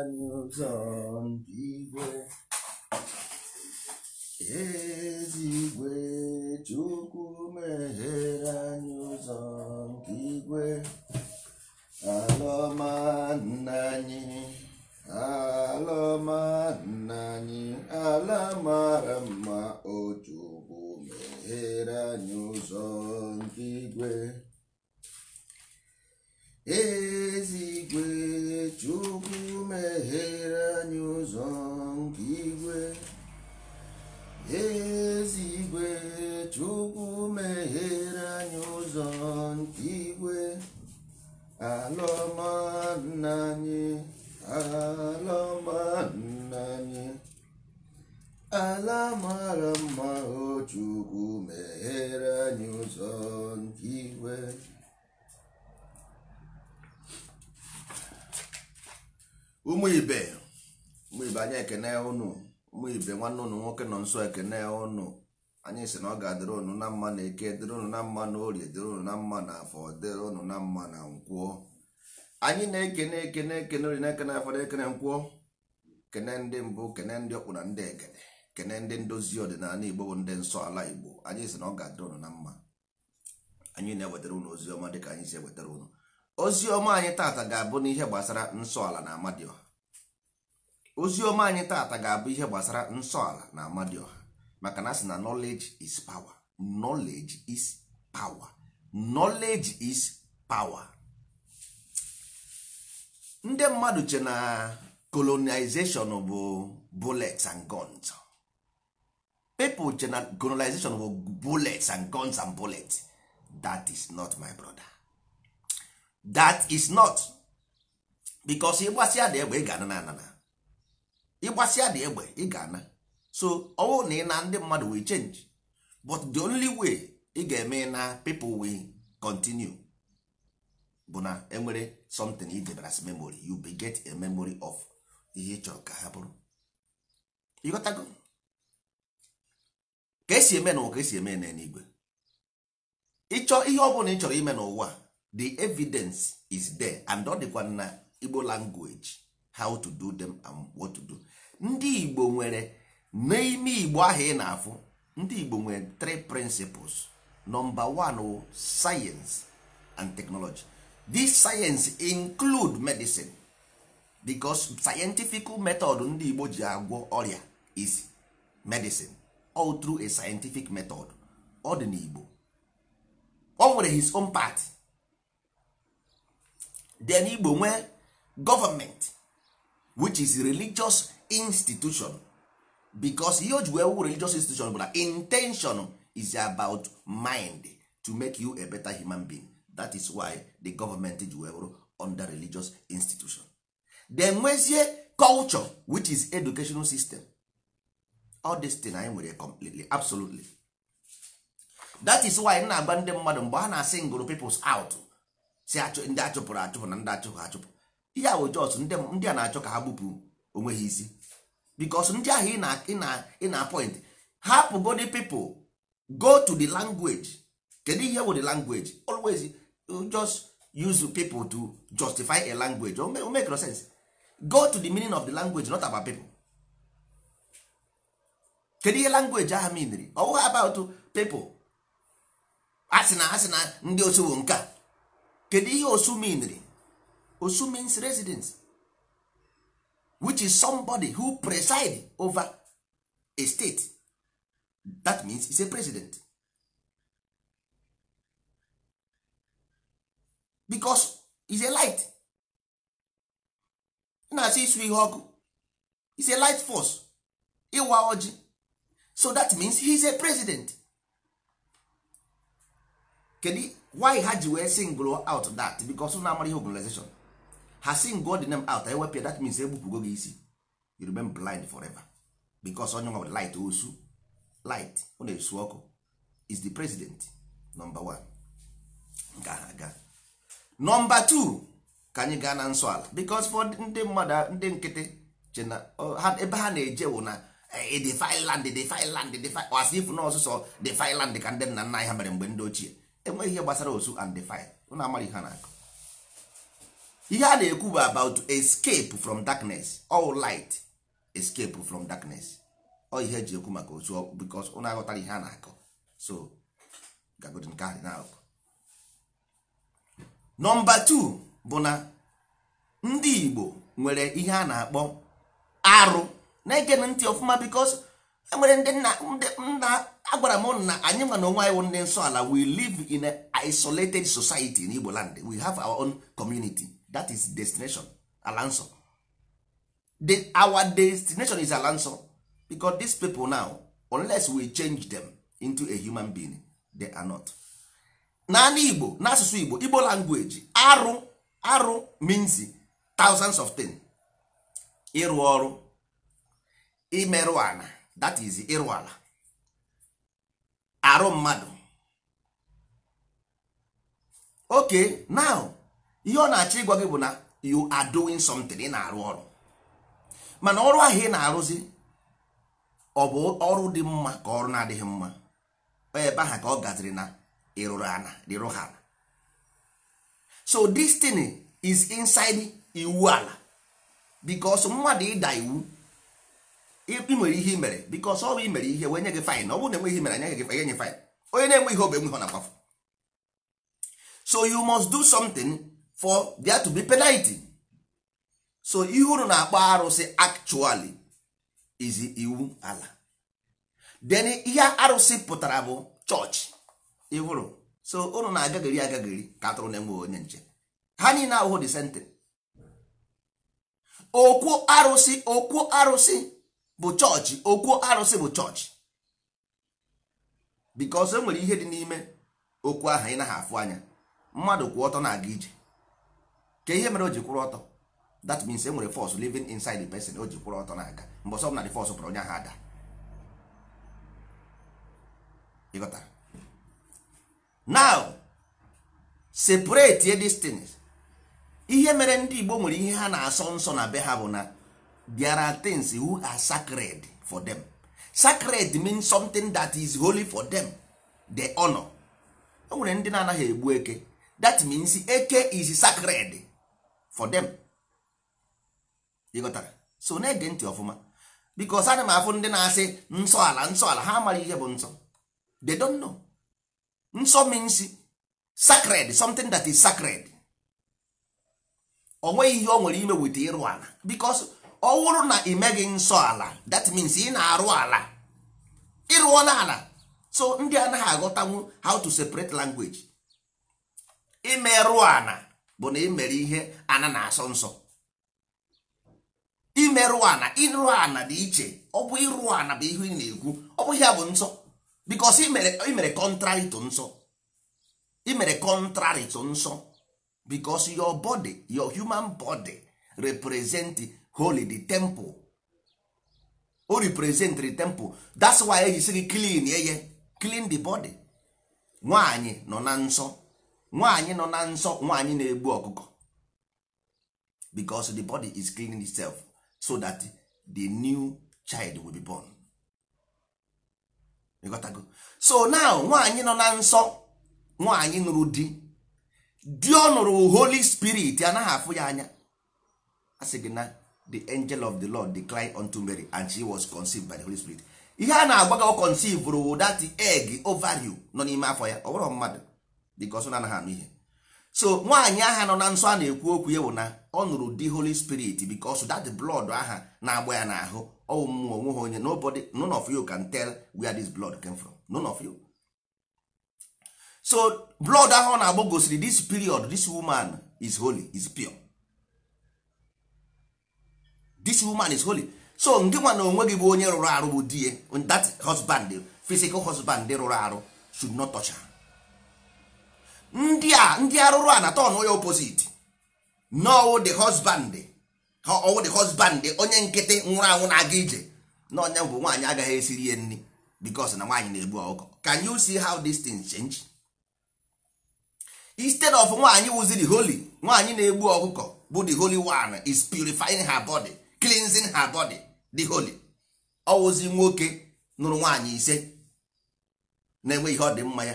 años antigüe, ezigbo Chukwu meghere anyị ụzọ nke igwe alọma nna anyị alọma o Chukwu meghere anyị ụzọ ezigwe chukwu meghere anyị ụzọ nke igwe ezigwe chukwu meghere anyị ụzọ nke igwe alọma nna anyị alọma nna anyị ala mara mma ochukwu meghere anyị ụzọ nke igwe ụmụ ibe ụmụ ibe anyị ekene ụnụ ụmụ ibe nwanne ụnụ nwoke nọ nso ekene ụnụ anyị si na ọ ga-adịrị ụnụ na mma na eke dịrị ụnụ na mma na orie dịrị ụnụ na mma na afọ dịrị ụnụ na mma na nkwụọ anyị na-ekene ekene ekene ori na-ekene afọ na ekene nkwụọ kene ndị mbụ kene ndị ọkpụ na ndị egede kene ndị ndozi ọdịnala igbo bụ ndị nsọ ala igbo anyị si na ọ ga-adịrị ụnụ na mma anyị na-ewetara ụnụ ozi ọma ka anyị si ewetara ụnụ ozi ọma anyị tata ga-abụ n'ihe gbasara nsọala na amadioha ozi anyị tata ga-abụ ihe gbasara nsọala na amadioha maka na asị na knowledge is power knowledge is power knowledge is power ndị mmadụ che na colonization bụ bullets and guns people che na colonization bụ bullets and guns and bullets that is not my brother. that is not because ịgbasịa dị egbe ị ga-ana na anana ịgbasịa dị egbe ị ga-ana so ọwụ na ị na ndị mmadụ will change but the only way ị ga-eme na people will continue bụ na enwere something ị debara as memory you be get a memory of ihe ị chọrọ ka ha bụrụ ịghọtago ka esi eme na ụwa ka esi eme n'eluigwe ịchọ ihe ọ bụla ị chọrọ ime n'ụwa the evidence is there and all the na igbo language how to do them and what to do ndị igbo nwere n'ime igbo ahụ ị na-afụ ndị igbo nwere three principles number one science and technology this science include medicine because scientific method ndị igbo ji agwọ ọrịa is medicine all through a scientific method ọ dị n'igbo o nwere his own path. then igbo nwee gọọmenti which is religious institution because ihe o ji wee wu religious institution bụ na intention is about mind to make you a better human being that is why the government ji wee wuru under religious institution then nwezie culture which is educational system all this thing anyị nwere completely absolutely that is why na-agba ndị mmadụ mgbe ha na-asị ngụrụ peoples out si ndị achụpụrụ achụpụ na ndị achụpụ achụpụ ihe a bụ jọs ndị a na-achọ ka ha gbupụ onwe ha isi bikos ndị ahụ ị na-apọint hapụ godi pipụl go to the language kedu ihe wụ the language always uh, just use people to justify a language o make no sense go to the meaning of the language not about people kedu ihe language ahụ miniri ọ bụghị about people asị na asị na ndị osi bụ nke a kedu ihe osu meanri osu means residence which is somebody who preside over a state that means is a president because is a light na-asị isu ihe ọkụ is a light force ịwa ojii so that means he is a president kedu why ha ji wee single out that because na amara ihe organization ha single the name out ewepịa that means egbupụgo gị isi you remain blind forever because onye nwe light osu light ọ na-esu ọkụ is the president number one nke aha aga number two ka anyị gaa na nsọ ala because for ndị mmadụ ndị nkịtị chena ebe ha na-eje wụ na defi eh, land defi land defi as if na ọsụsọ defi land ka ndị nna nna anyị ha mere mgbe ndị ochie enweghị ihe gbasara osu and define ụna amara ihe na-akụ ihe a na-ekwu bụ about escape from darkness all light escape from darkness ọ ihe eji ekwu maka osu because ụna aghọtara ihe a na akụ so gagodi nke ahụ na nọmba 2 bụ na ndị Igbo nwere ihe a na-akpọ arụ na-ege ntị ọfụma because enwere ndị nna agwara m na anyị nwa na onwe anyị ndị nsọ ala we live in an isolated society in Igbo land we have our own community that is destination ala nsọ the, our destination is ala nsọ because these people now unless we change them into a human being they are not naanị Igbo n'asụsụ Igbo Igbo language arụ arụ means thousands of things ịrụ ọrụ imerụ ana that is ịrụ ala arụ mmadụ okay now ihe ọ na-achọ ịgwa gị bụ na you are doing something ị na-arụ ọrụ mana ọrụ ahụ ị na-arụzi ọ bụ ọrụ dị mma ka ọrụ na-adịghị mma ebe ahụ ka ọ gaziri na ịrụrụ ana rịrụ ha so this thing is inside iwu ala because mmadụ ịda iwu ị nwere ihe mere bikos ọ bụ i mere ihe wee nye gị fain ọ bụrụ na enweghị mere anyaghị gị fain nye fain onye na-enwe ihe obe nwe na akwafụ so you must do something for there to be penalty so ihe unu na-akpọ arụsị actually is iwu ala then ihe arụsị pụtara bụ chọọchị ịhụrụ so unu na-agagari agagari ka atụrụ na-enwe onye nche ha niile ahụhụ dị sentin okwu arụsị okwu arụsị bụ chọọchị okwu arụsị bụ chọọchị bikos e nwere ihe dị n'ime okwu ahụ ị naghị afụ anya mmadụ kwụ ọtọ na-aga ije ka ihe mere o ji kwụrụ ọtọ that means e nwere force living inside the person o ji kwụrụ ọtọ na-aga mgbe ọsọ na the force pụrụ onye ahụ ada ịghọtara now separate these ihe mere ndị Igbo nwere ihe ha na-asọ nsọ na be ha bụ na there are things who are sacred for them sacred means something that is holy for them the honor o nwere ndị na-anaghị egbu eke that means eke is sacred for them ịghọtara so na-ege ntị ọfụma because ana m afụ ndị na-asị nsọ ala nsọ ala ha amaghị ihe bụ nsọ they don't know nsọ means sacred something that is sacred ọ nweghị ihe ọ nwere ime wit ịrụ ala because ọ wụrụ na imeghị nsọ ala that means ị na-arụ ala ịrụọla ala so ndị anaghị aghọtanwu how to separate language imerụ ana bụ na imere ihe ana na-asọ nsọ imerụ ana ịrụ ana dị iche ọ bụ ịrụ ana bụ ihe ị na-ekwu ọ bụ ihe bụ nsọ because imere contrary to nsọ imere contrary nsọ because your body your human body represent holy the temple o represent the temple that's why e sị gị clean eye clean the body nwaanyị nọ na nsọ nwaanyị nọ na nsọ nwaanyị na-egbu ọkụkọ because the body is cleaning itself so that the new child will be born ịghọtago so now nwaanyị nọ na nsọ nwaanyị nụrụ di di ọ nụrụ holy spirit anaghị afụ ya anya a sị gị na the angel of the lord declined unto mary and she was conceived by the holy spirit ihe a na-agwa ka conceive rụ that egg ovary nọ n'ime afọ ya ọ bụrụ mmadụ dịka ọsọ anaghị anụ ihe so nwaanyị aha nọ na nsọ a na-ekwu okwu ya bụ na ọ nụrụ the holy spirit because that blood aha na-agba ya n'ahụ ọwụ mmụọ onweghị onye nobody none of you can tell where this blood came from none of you so blood ahụ ọ na-agba gosiri this period this woman is holy is pure this woman is holy so ndị nwa na onwe gị bụ onye rụrụ arụ bụ di ya that husband physical husband rụrụ arụ should not touch her ndị a ndị arụrụ a na tọn onye opposite n'ọwụ the husband ọwụ the husband onye nkịtị nwụrụ anwụ na-aga ije na onye bụ nwaanyị agaghị esiri ya nri because na nwaanyị na-egbu ọkụkọ can you see how these things change instead of nwaanyị wụzi the holy nwaanyị na-egbu ọkụkọ bụ the holy one is purifying her body cleansing her body the holy ọwụzi nwoke nụrụ nwaanyị ise na said. ihe ọ dị mma ya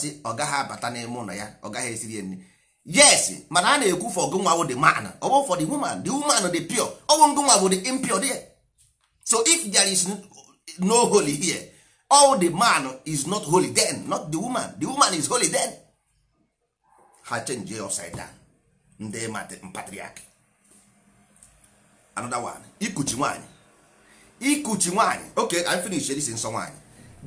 see. I ọ gaghị abata n'ime ụlọ ya ọ gaghị esiri ya nri yes mana a na-ekwu for gụnwa bụ the man ọ bụ for the woman the woman the pure ọwụ ngụnwa bụ the impure there so if there is no holy here all the man is not holy then not the woman the woman is holy then ha change upside ndị patriarch another one ikuchi nwaanyị ikuchi nwaanyị ok I finish this nsọ nwaanyị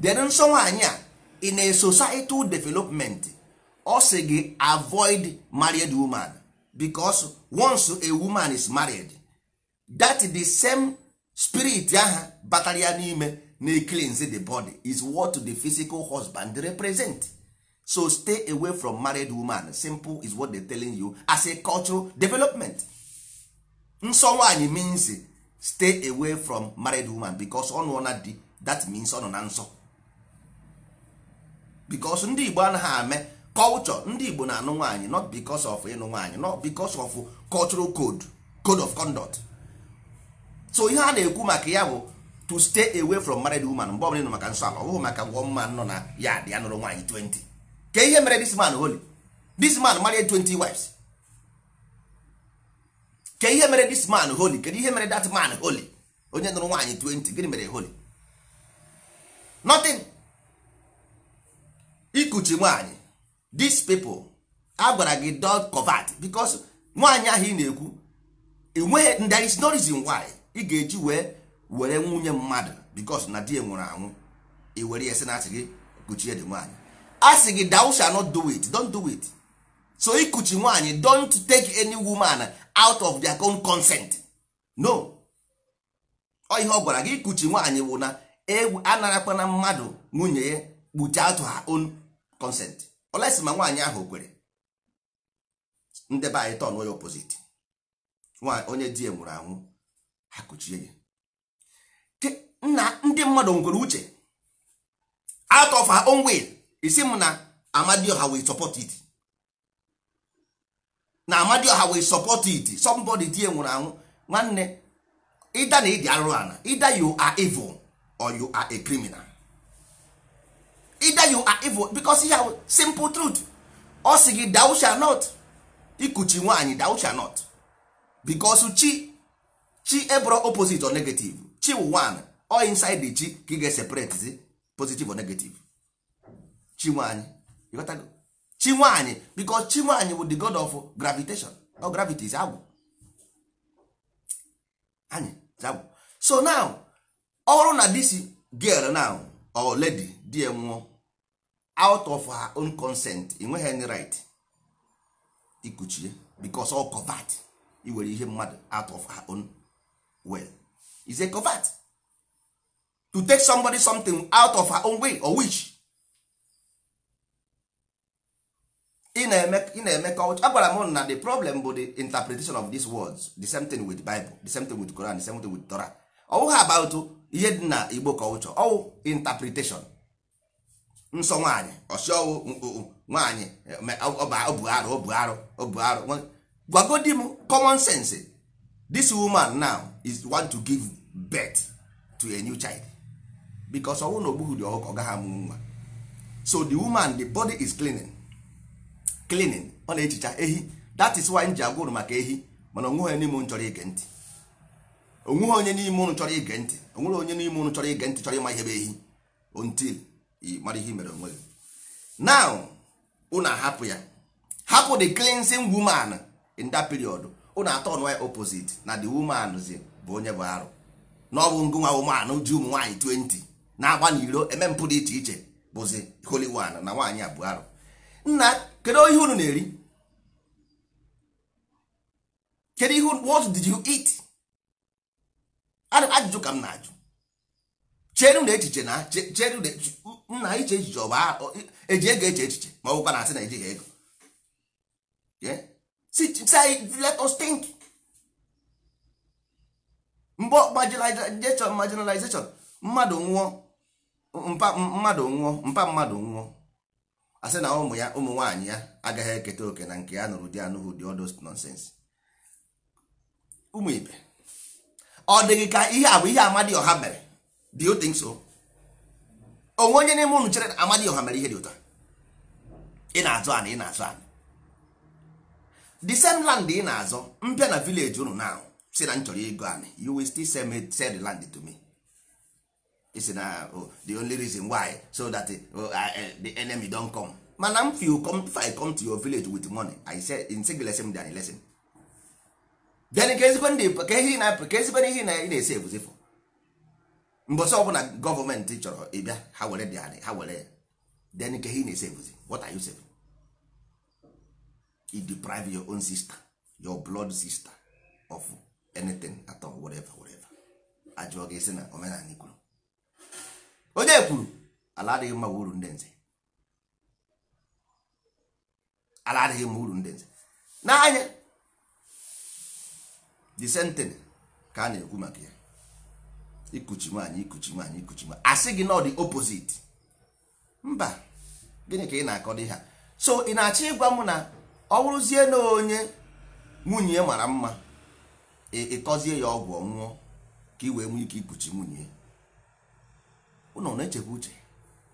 then nsọ nwaanyị a in a societal development ọ sị gị avoid married woman because once a woman is married that the same spirit aha batara n'ime na cleanse the body is what the physical husband represent so stay away from married woman simple is what they telling you as a cultural development nsọ nwaanyị means stay away from married woman because ọ nụọ na di that means ọ nọ na nsọ because ndị Igbo anaghị ame culture ndị Igbo na-anụ nwaanyị not because of ịnụ nwaanyị not because of cultural code code of conduct so ihe a na-ekwu maka ya bụ to stay away from married woman mgbe ọbụla ịnụ maka nsọ ala ọ bụghị maka gwọ mma nọ na ya dị ya nụrụ nwaanyị 20 ka ihe mere this man holy this man married 20 wives ke ihe mere this man holy kedu ihe mere that man holy onye nụrụ nwaanyị 20 gịnị mere holy nothing ikuchi nwaanyị these people a gwara gị dot covert because nwaanyị ahụ ị na-ekwu enweghị there is no reason why ị ga-eji wee were nwunye mmadụ because na di nwụrụ anwụ i were ya sị na asị gị kuchie dị nwaanyị a sị gị thou shall not do it don't do it so ikuchi nwaanyị don't take any woman out of their own consent no ọ ihe ọ gwara gị kuchi nwaanyị wụ na e anarakwana mmadụ nwunye ya kpuchi out her own consent olesi ma nwaanyị ahụ kwere ndebe anyị tọn onye opposite onye di ya nwụrụ anwụ ha kuchie ya nna ndị mmadụ nwere uche out of her own will isi m na ha will support it na ha wee support it somebody tie nwụrụ anwụ nwanne ịda na ịdị arụrụ ana ịda you are evil or you are a criminal ịda you are evil because ihe simple truth ọ sị gị thou not ikuchi nwaanyị dausha nọt not because chi chi ebro opposite or negative chi wụ nwanyị or inside the chi ka ị ga-eseparate positive or negative chi nwaanyị chinwanyị because chinwanyị bụ the god of gravitation or gravity is agwụ anyị agwụ so now our na this girl now or lady die nwụọ out of her own consent enweghị any right ikuchie because ọ covert iwere ihe mmadụ out of her own way. is a covert to take somebody something out of her own way or which? ị na-eme culture agwara m na the problem bụ the interpretation of these words the same thing with bible the same thing with Quran the same thing with Torah ọwụghị about ihe dị na igbo culture ọwụ interpretation nsọ nwaanyị ọsị ọwụ nwaanyị ọbụ arụ ọbụ arụ ọbụ arụ m common sense this woman now is want to give birth to a new child because ọwụ na ogbughi dị ọhụka ọ gaghị amụ nwa so the woman the body is cleaning cleaning ọ na ehicha ehi that is why m ji agwa unu maka ehi mana onweghị n'ime unu chọrọ ige ntị onweghị onye n'ime unu chọrọ ige ntị onweghị onye n'ime unu chọrọ ige ntị chọrọ ịma ihe bụ ehi until mara ihe mere onwe gị now unu ahapụ ya hapụ the cleansing woman in that period unu atọ ọnụ ya opposite na the woman zi bụ onye bụ arụ na ọ bụ ngụnwa woman ji ụmụ nwaanyị 20 na-agba n'iro eme mpụ dị iche iche bụzi holy one na nwaanyị abụọ bụ arụ kedu ihe unu na-eri kedu ihe what did you eat ajụjụ ka m na-ajụ chere na echiche na chere na nna iche echiche ọ bụ e eji ego eche echiche ma ọ bụkwa na asị na ejighị ego let us think mgbe marginalization mmadụ nwụọ mpa mmadụ nwụọ mpa mmadụ nwụọ asị na ụmụ ya ụmụ nwaanyị ya agaghị eketa oke na nke ya nụrụ di anụhụ dị odos nonsens ụmụ ibe ọ dịghị ka ihe a bụ ihe Amadioha mere dị you nso, onwe onye n'ime unu chere na ọha mere ihe dị ụtọ ị na-azụ ana ị na-azụ ana the same land ị na-azọ mpịa na Vileji ụnụ na si na m chọrọ ego ana you will still sell the land to me isi na oh, the only reason why so that eh, oh, eh, the enemy don come mana m fi come if i come to your village with money i say in single lesson than lesson then ka ezigbo ndị ka ihe na ka ezigbo ihe na ị na-ese ebuzi fọ mbọsị ọbụla gọọmenti chọrọ ịbịa ha were dị anyị ha were ya then ka ihe ị na-ese ebuzi what are you saving you deprive your own sister your blood sister of anything at all whatever whatever ajụọ gị si na omenala ikwuru onye kwuru ala adịghị mma uru ndị nze ala adịghị mma uru ndị nze n'anya the sentence ka a na-ekwu maka ya ikuchi nwaanyị ikuchi nwaanyị ikuchi nwaanyị asị gị na ọ dị mba gịnị ka ị na-akọ dị ha so ị na-achọ ịgwa m na ọ bụrụzie na onye nwunye mara mma ị kọzie ya ọgwụ ọṅụṅụ ka ị wee nwee ike ikuchi nwunye ụnụ na-echekwa uche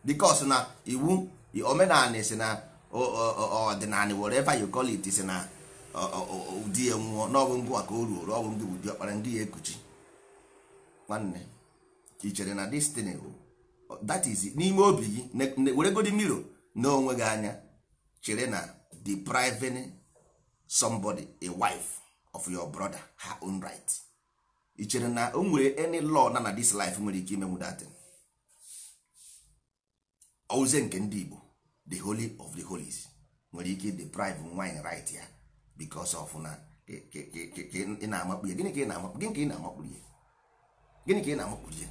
bikos na iwu omenala si na ọdịnala whatever you call si na ụdị ya nwụọ n'ọgwụ ngụ maka o ruo ọgwụ ndị ụdị ọkpara ndị ya ekuchi nwanne ị chere na destiny that is n'ime obi gị weregodi miro na onwe gị anya chere na depriving somebody a wife of your brother her own right i chere na o nwere any law na na this life nwere ike imenwu datin ọwụzie nke ndị Igbo the holy of the holies nwere ike deprive nwanyị right ya because of na ị na-amakpu ya gịnị ka ị na-amakpu ya gịnị ka ị na-amakpu ya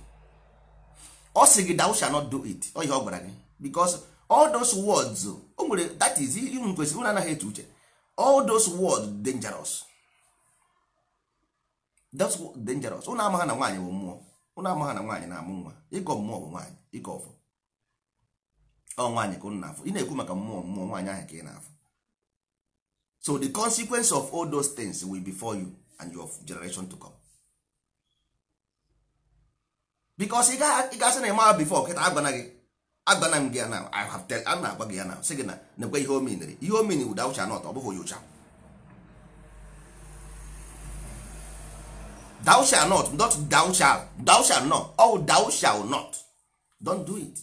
ọ sị gị thou shall not do it ọ ihe ọ gwara gị because all those words o nwere that is unu kwesịrị unu anaghị eche uche all those words dangerous that's dangerous unu amaghị na nwaanyị bụ mmụọ unu amaghị na nwaanyị na-amụ nwa ịkọ mmụọ bụ nwaanyị ịkọ ọfọ ọ nwaanyị ka unu na-afụ ị na-ekwu maka mmụọ mmụọ nwaanyị ahụ ka ị na-afụ so the consequence of all those things will be for you and your generation to come because ị ga-asị na ịmara bifo kịta agwana gị agwana m gị na I have tell na-agwa gị ya na sị gị na nekwe ihe omenere ihe omene wuda ụcha not ọ bụghị onyocha thou not not thou shall not oh thou not don't do it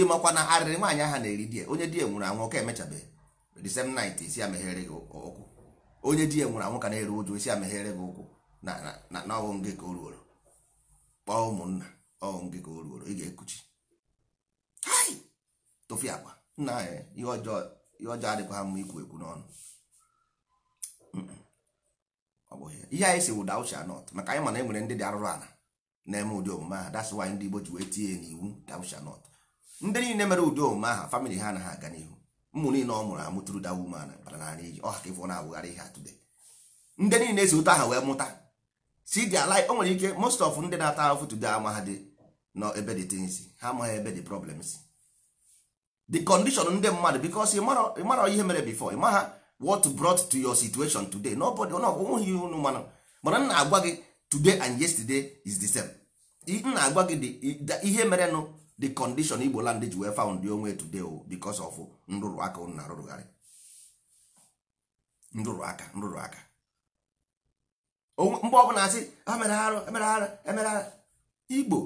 ịmakwa na arịrị nwaanyị aha na-eri di onye di ya nwụrụ anwụ ọka emechabeghị disem nit isi ameghere gị ụkwụ onye di ya nwụrụ anwụ ka na-eru ụjụ isi ameghere gị ụkwụ na ọghụ gị ka o ruoro kpọọ ụmụnna ọghụ gị ka o ruoro ị ga-ekuchi tụfịa akwa nna anyị ihe ọjọọ adịkwa ha mma ikwu ekwu n'ọnụ ọ bụghị ihe anyị si wụda uche anọt maka anyị mana e nwere ndị dị arụrụ ala na-eme ụdị omume ahụ that's ndị Igbo ji wee tinye n'iwu dawusha not ndị niile mere udo omume aha famili ha na ha aga n'ihu ụmụ niile ọ mụrụ amụtụrụ da woman bara n'ala iji ọ haka ịfụ na-awụgharị ihe atụde ndị niile si ụtọ aha wee mụta si dị ala o nwere ike most of ndị na-ata ahụfụ tude ama ha dị nọ ebe dị things ha amaghị ebe dị problems the condition ndị mmadụ because ịmara ihe mere before ịmaha what brought to your situation today nobody nweghị ihe unu manụ mana m na-agwa gị today and yesterday is the same m na-agwa gị ihe merenụ the condition igbo land ji wee found the onwe today o oh, because of oh, nrụrụ aka na arụrụgharị nrụrụ aka nrụrụ aka mgbe ọbụla asị emere arụ emere arụ emere arụ igbo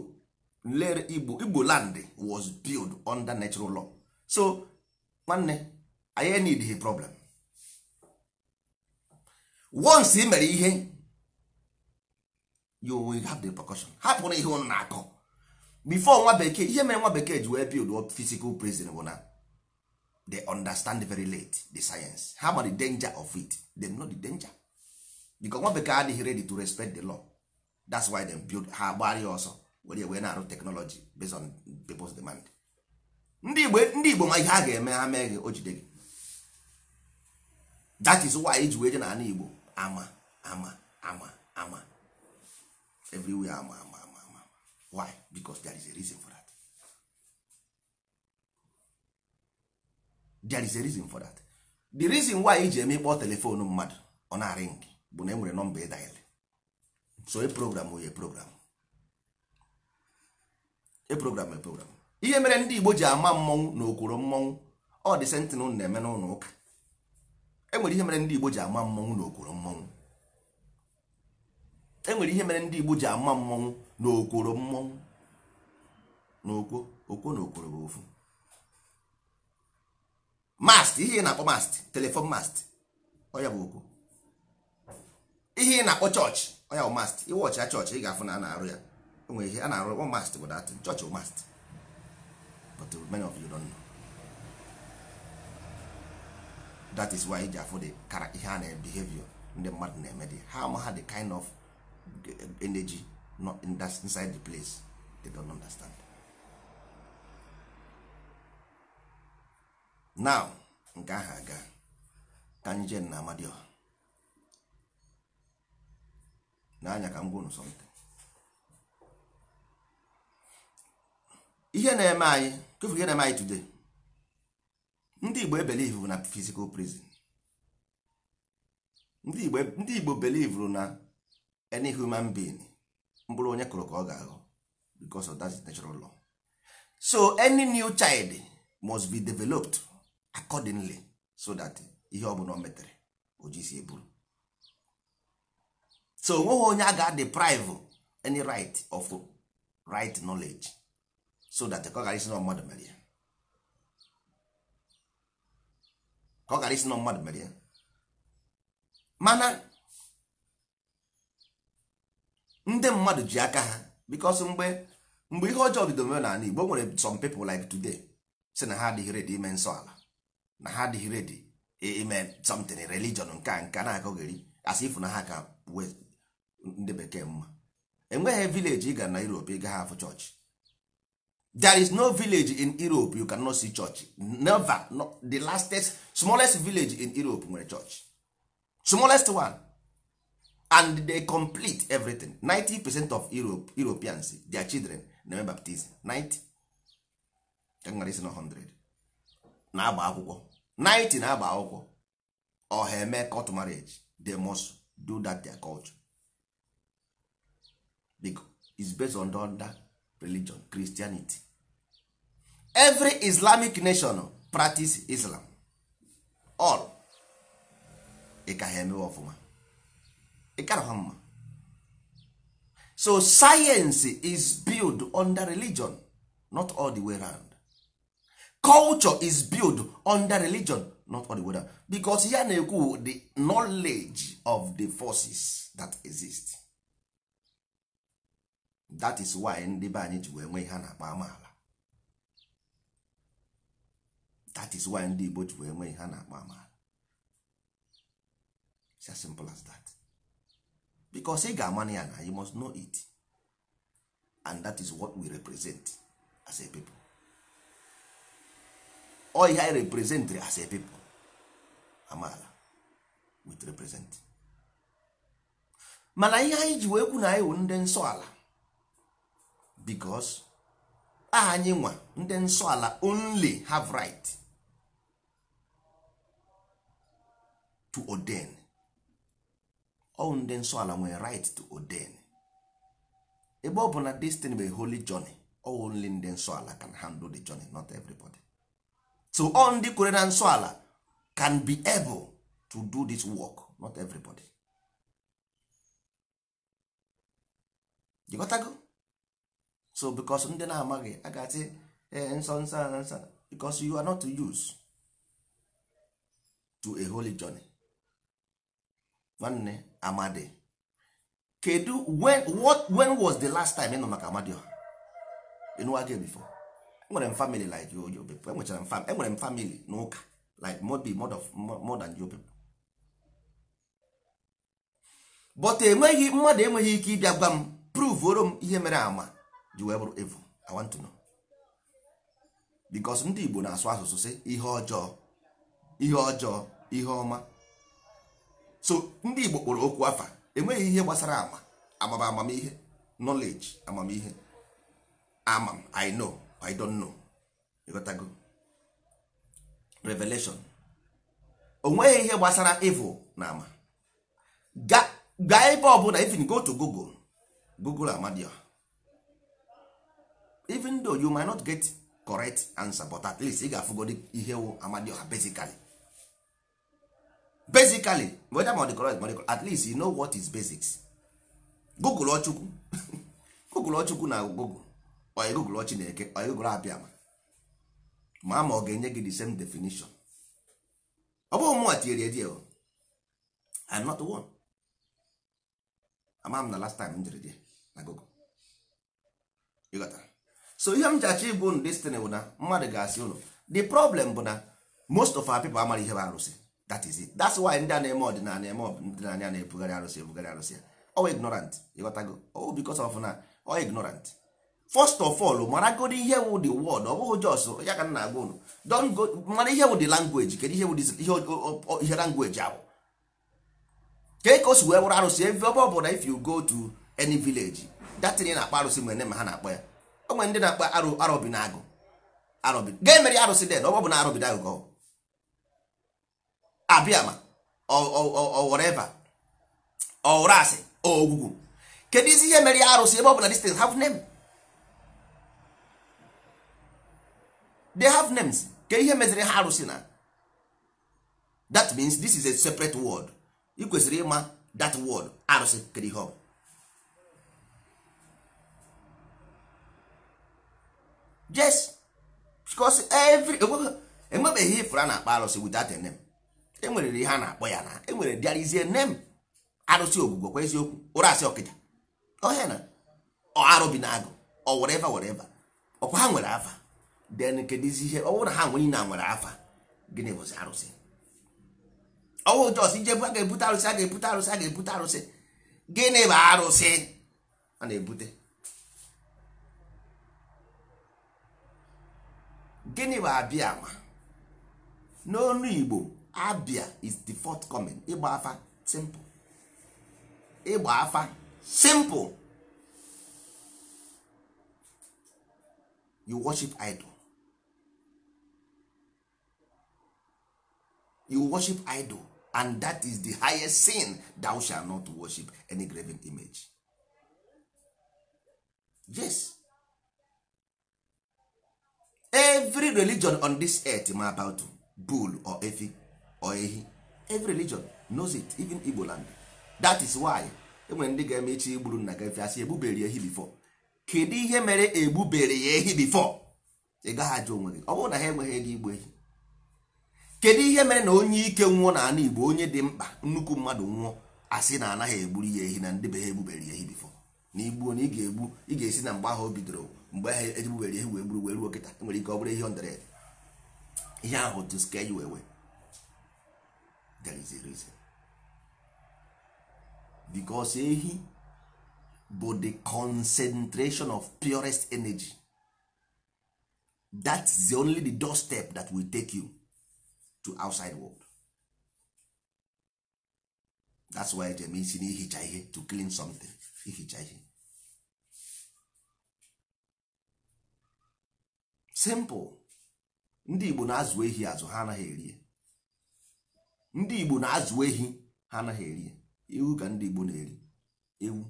lere igbo igbo land was built under natural law so nwanne anyị need a problem once imere mere ihe you will have the precaution hapụrụ ihe ụnụ na-akọ before nwa bekee ihe mere nwa bekee ji wee build physical prison bụ na they understand very late the science ha ma the danger of it them know the danger because nwa bekee adịghị ready to respect the law that's why them build ha gbara ọsọ were wee na-arụ technology based on people's demand ndị igbo ndị igbo ma ihe ha ga-eme ha mee gị o jide gị that is why iji e wee je na ala igbo ama ama ama ama everywhere ama ama why because there is a reason for that there is a reason for that the reason why iji eme ịkpọ telefonu mmadụ ọ na-arịng bụ na e nwere nọmba ịdaịl so e program oye program e program e program ihe mere ndị Igbo ji ama mmọnwụ na okworo mmọnwụ ọ dị sentinel na-eme n'ụlọ ụka enwere ihe mere ndị Igbo ji ama mmọnwụ na okworo mmọnwụ enwere ihe mere ndị Igbo ji ama mmọnwụ na mmọnwụ n'okwo okwo okwo na okworo bụ ofu mast ihe ị na-akpọ mast telefon mast ọya bụ okwo ihe ị na-akpọ chọọchị ọya bụ mast iwọchị ya chọọchị ị ga-afụ na a na-arụ ya enwere ihe a na-arụ ọ mast bụ dat chọọchị mast but many of you don't know that is why ị ji afụ kara ihe a na-ebehavior ndị mmadụ na-eme dị ha ama ha the kind of energy not in that, inside the place they don't understand now nke ahụ aga Kanjen anyị jee na anya n'anya ka m gwụrụ something ihe na-eme anyị kefu ihe na-eme anyị today ndị igbo ebelivu na physical prison ndị igbo e, belivuru na any human being mkpụrụ onye kụrụ ka ọ ga-aghọ because of that natural law so any new child must be developed accordingly so that ihe ọ bụla o metere o ji si eburu so onweghị onye a ga-deprive any right of right knowledge so that ka ọ ghara isi na mmadụ mere ya ka ọ ghara isi na mmadụ mere ya mana ndị mmadụ ji aka ha because mgbe mgbe ihe ọjọọ bidoro mere n'ala Igbo nwere some people like today si na ha adịghị redi ime nsọ ala na ha adịghị redi ime something religion nke nka nka na-akọgheri asị ifu na ha ka ndị bekee mma enweghị village ị ga na Europe ị gaghị afụ chọọchị there is no village in Europe you can cannot see church never no, the lastest smallest village in Europe nwere church smallest one and they complete everything 90 percent of Europe, europeans their children na baptism 90 They are na 100 na-agba akwụkwọ 90 na-agba akwụkwọ ọha eme marriage they must do that their culture because it's based on that religion christianity every islamic nation practice islam all ị ka ha emewe ọfụma ịkarọha mma so science is built under religion not all the way round. culture is built under religion not all the way round. Because ya na-ekwu the knowledge of the forces that exist that is why ndị be anyị ji wee nwee ihe a na-akpọ amaala that is why ndị Igbo ji wee nwee ihe a na-akpọ amaala it's as simple as that because ị ya na you must know it and that is what we represent as a people ọ ihe anyị as a people amaala with represent mana ihe anyị ji wee kwu na anyị wụ ndị nsọ ala because aha anyị nwa ndị nsọ ala only have right to ordain ọwụ ndị nsọ ala nwere right to ordain ebe ọ bụ na destiny bụ a holy journey only ndị nsọ ala can handle the journey not everybody so all ndị kwere na nsọ ala can be able to do this work not everybody gotago so because ndị na-amaghị agazi eh, nsọ nsọ nsọ because you are not to use to a holy journey nwanne amadi kedu when what when was the last time ịnụ maka amadioha ịnụwa gị before enwere m family like you you people enwechara m family enwere m family n'ụka like more be more of more than you people but enweghị mmadụ enweghị ike ịbịa gwa m prove pruvoro m ihe mere ama ji wee bụrụ evil i want to know because ndị Igbo na-asụ asụsụ si ihe ọjọọ ihe ọjọọ ihe ọma so ndị igbo kpọrọ okwu afa enweghị ihe gbasara ama amaba amamihe knowledge amamihe amam i know i don't know ịghọtago revelation enweghị ihe gbasara evil na ama ga ebe ọbụla even go to google google amadio even though you might not get correct answer but at least ị ga-afụgodi ihe wụ amadioha basically basically whether ma ọ correct ma at least you know what is basics google ọchukwu google ọchukwu na google oyi google ọchị na-eke oyi google ma ma ọ ga-enye gị the same definition ọ bụghị mụnwa tinyere edi o I'm not one ama na last time m jere die na google ịghọtara so ihe m ji achọ ịbụ destiny bụ na mmadụ ga-asị ụlọ the problem bụ na most of our people amaghị ihe bụ arụsị that is it that's why ndị a na-eme ọdịnala eme na-ebugharị arụsị ebugharị arụsị ọ ignorant ịghọtago oh bikos of na ọ ignorant first of all maragodi ihe wụ the word ọ bụghị jos ya ka na-agwa unu go mara ihe wụ the ihe ahụ kee ka o wee bụla if you go to any village datin na-akpa arụsị mgbe ma ha na ya o emere den ọ bụ na na abịama whatever ọwụrụ asị ogwugwu kedu izi ihe mere arụsị ebe ọ bụla distance have name they have names kedu ihe meziri ha arụsị na that means this is a separate word ị kwesịrị ịma that word arụsị kedu ihe ọ bụ yes because every enwebeghị ifụra na-akpa arụsị without a name enwere ihe ha na-akpọ ya na enwere dịarizie nne m arụsị ogbugbo kwa eziokwu ụra asị ọkịja ọhịa na arụ bi na agụ ọ were eva were eva ọkwa ha nwere afa den kedizi ihe ọwụ na ha nwere na nwere afa gịnị bụzi arụsị ọwụ jos ijebu a ga-ebute arụsị a ga-ebute arụsị a ga-ebute arụsị gịnị bụ arụsị a na-ebute gịnị bụ abịa ama n'ọnụ igbo abia is the fourth coming ịgba afa simple ịgba afa simple you worship idol you worship idol and that is the highest sin thou shall not worship any graven image yes every religion on this earth ma about bull or efi or ehi every religion knows it even igbo land that is why enwere ndị ga-eme echi igburu nna gị asị egbubere ehi bifo kedu ihe mere egbubere ya ehi bifo ị gaghị onwe gị ọ bụrụ na ha enweghị ego igbu ehi kedu ihe mere na onye ike nwụọ na ala igbo onye dị mkpa nnukwu mmadụ nwụọ asị na anaghị egburu ya ehi na ndị be ha egbubere ya ehi bifo na igbuo na ị ga-egbu ị ga-esi na mgbe ahụ o bidoro mgbe ahụ egbubere ehi wee gburu wee ruo kịta nwere ike ọ bụrụ ihe ndere ihe ahụ to scare you away there is a reason because ehi bụ the concentration of purest energy that's the only the doorstep that will take you to outside world that's why eji eme isi na ihe to clean something ihicha ihe simple ndị Igbo na-azụ ehi azụ ha anaghị erie ndị igbo na-azụ ehi ha anaghị eri ewu ka ndị igbo na-eri ewu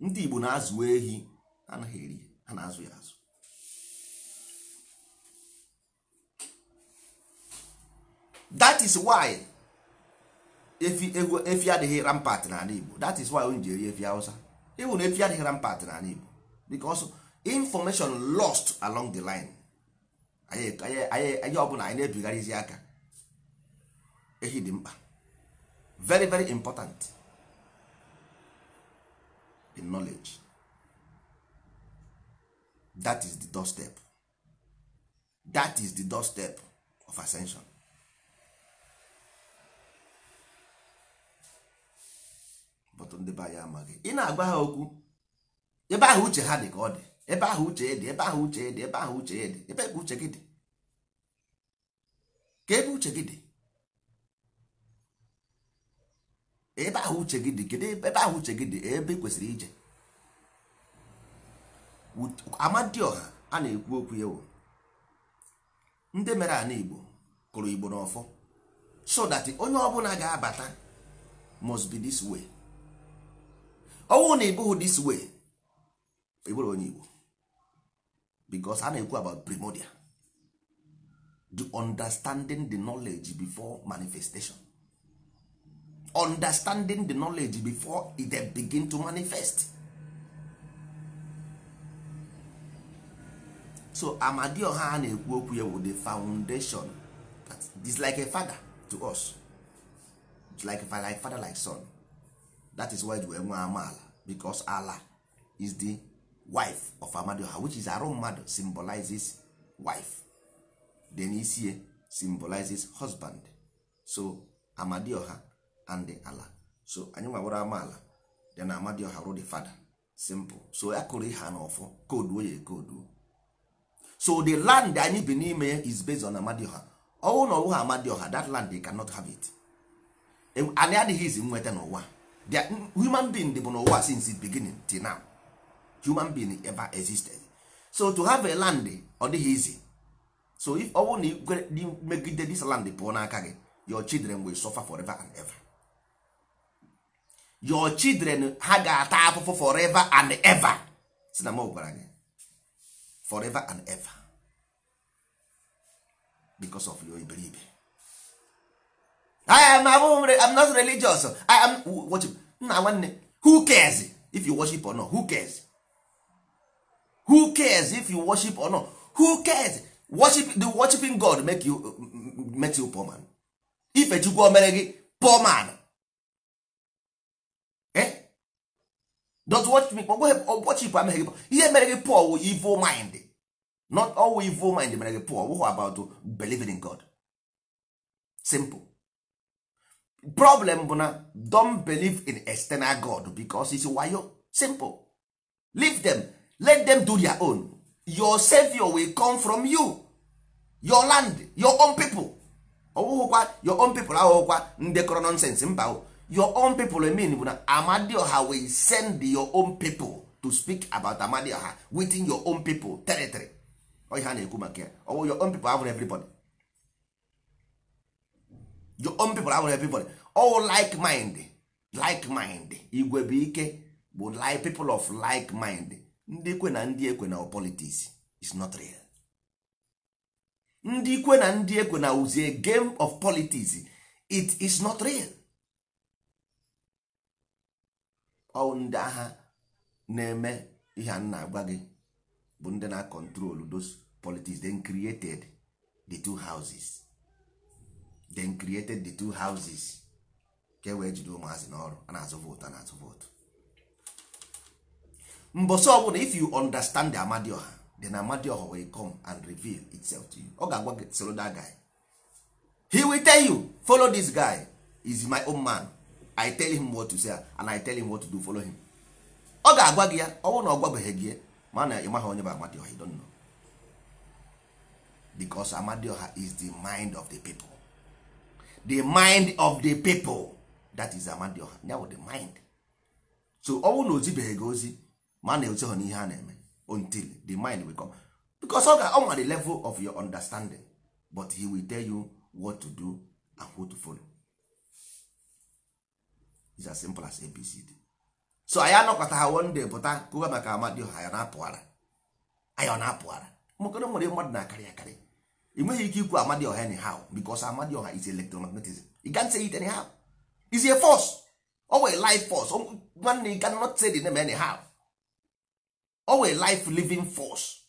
ndị igbo na-azụ ehi ha anaghị eri ha na-azụ ya azụ that is why efi efi adịghị rampart n'ala igbo that is why onye ji eri efi hausa ịhụ na efi adịghị rampart n'ala igbo because information lost along the line anyị ọbụla anyị na-ebigharịzi aka ehi dị mkpa very very important in knowledge that is the doorstep that is the doorstep of ascension but ndị be anyị amaghị ị na-agwa ha okwu ebe ahụ uche ha dị ka ọ dị ebe ahụ uche dị ebe ahụ uche dị ebe ahụ uche dị ebe ebe uche gị dị ka ebe uche gị dị ebe ahụ uche gị dị kedu ebe ahụ uche gị dị ebe kwesịrị ije amadioha a na-ekwu okwu ya ndị mere ana igbo kụrụ igbo n'ọfọ so that onye ọbụla ga-abata must be this way ọnwụ na ịbụghị this way ịbụrụ onye igbo because a na-ekwu about primordial the understanding the knowledge before manifestation understanding the knowledge before it begin to manifest so amadioha a na-ekwu okwu ya the foundation is like a father to us It's like like father like son that is why we nwe amaala because Ala is the wife of amadioha which is arụ mmadụ symbolizes wife then isie symbolizes husband so amadioha and the ala so anyị nwawere amaala dị na amadioha rụ the fada simple so ya kụrụ ihe na ọfọ kooduo ya ekooduo so the land anyị bi n'ime ya is based on amadioha ọwụ na ọwụha amadioha that land they cannot have it anyị adịghị izi nweta n'ụwa the human being bụ n'ụwa since the beginning till now human being ever existed so to have a land ọ dịghị izi so if ọwụ na megide this land pụọ n'aka gị your children will suffer forever and ever. your children ha ga-ata afụfụ forever and ever si na m gwara gị forever and ever because of your iberibe I am I'm not religious I am What? nna nwanne who cares if you worship or not who cares who cares if you worship or not who cares worship the worshiping God make you make you poor man ife Chukwu o mere gị poor man Eh? don't watch me ọgwọchipụ ameghị gị ihe mere gị pọl wụ evil mind not all evil mind mere gị pọl wụhụ about believing in god simple problem bụ na don't believe in external god because it's wayo simple leave them let them do their own your savior will come from you your land your own people ọwụhụkwa oh, your own people ahụhụkwa ndekọrọ nonsense mba oh. your own people mean bụ na amadioha will send your own people to speak about amadioha within your own people territory ọhịa oh, a na-ekwu maka ya oh, ọwụ your own people abụrụ everybody your own people abụrụ everybody all oh, like mind like mind igwe bụ ike bụ like people of like mind ndị ikwe na ndị ekwe na politics is not real ndị ikwe na ndị ekwe na uzie game of politics it is not real ọwụ ndị agha na-eme ihe a na-agwa gị bụ ndị those politics then created the two houses then created the two houses ka e wee jide ụmụazị n'ọrụ a na-azụ vootu a na-azụ vootu mbọsọ ọbụla if you understand the amadioha then amadioha will come and reveal itself to you ọ ga-agwa soro that guy he will tell you follow this guy is my own man i tell him what to say and i tell him what to do follow him ọ ga-agwa gị ya ọ na ọ gwabeghị gị mana ị maghị onye bụ amadioha don't know because amadioha is the mind of the people the mind of the people that is amadioha ya the mind so I will na ozibeghị gị ozi mana ezoghị n'ihe a na-eme until the mind will come because ọ ga-ọnwa the level of your understanding but he will tell you what to do and who to follow is as simple as abcd so anyị anọkọta ha one day pụta kụwa maka ha, anyị na-apụghara anyị ọ na-apụghara mmakọrọ nwere mmadụ na-akarị akarị ị nweghị ike ikwu amadioha anyhow because amadioha is electromagnetism you can't say it anyhow is a force owe life force nwanne you cannot say the name anyhow owe life living force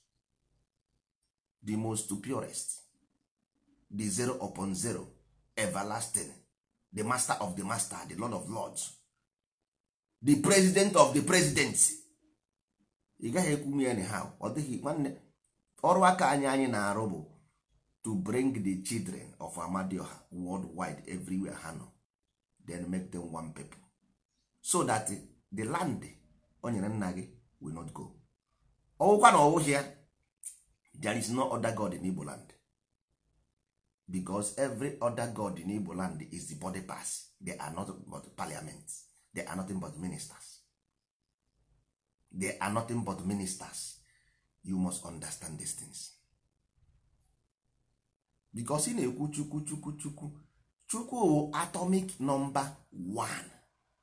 the most purest the zero upon zero everlasting the master of the master the lord of lords the president of the presidents ị gaghị ekwu ya anyhow ọ dịghị nwanne ọrụ aka anyị anyị na-arụ bụ to bring the children of amadioha worldwide everywhere ha nọ then make them one people so that the land o nyere nna gị will not go ọwụkwa na ọwụghị ya there is no other god in igbo land because every other god in igbo land is the body pass they are not but parliament they are nothing but ministers they are nothing but ministers you must understand these things because ị na-ekwu chukwu chukwu chukwu chukwu atomic number one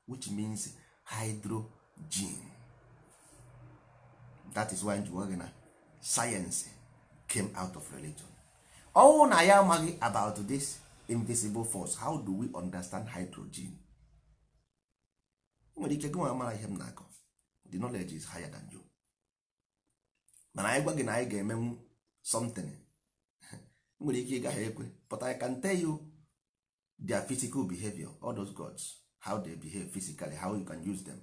which means hydrogen that is why njiwa gị science came out of religion ọnwụ na ya amaghị about this invisible force how do we understand hydrogen nwere ike gị mara ihe m na-akọ the knowledge is higher than you mana anyị gwa gị na anyị ga-emenwu something nwere ike ịgaghị ekwe but I can tell you their physical behavior all those gods how they behave physically how you can use them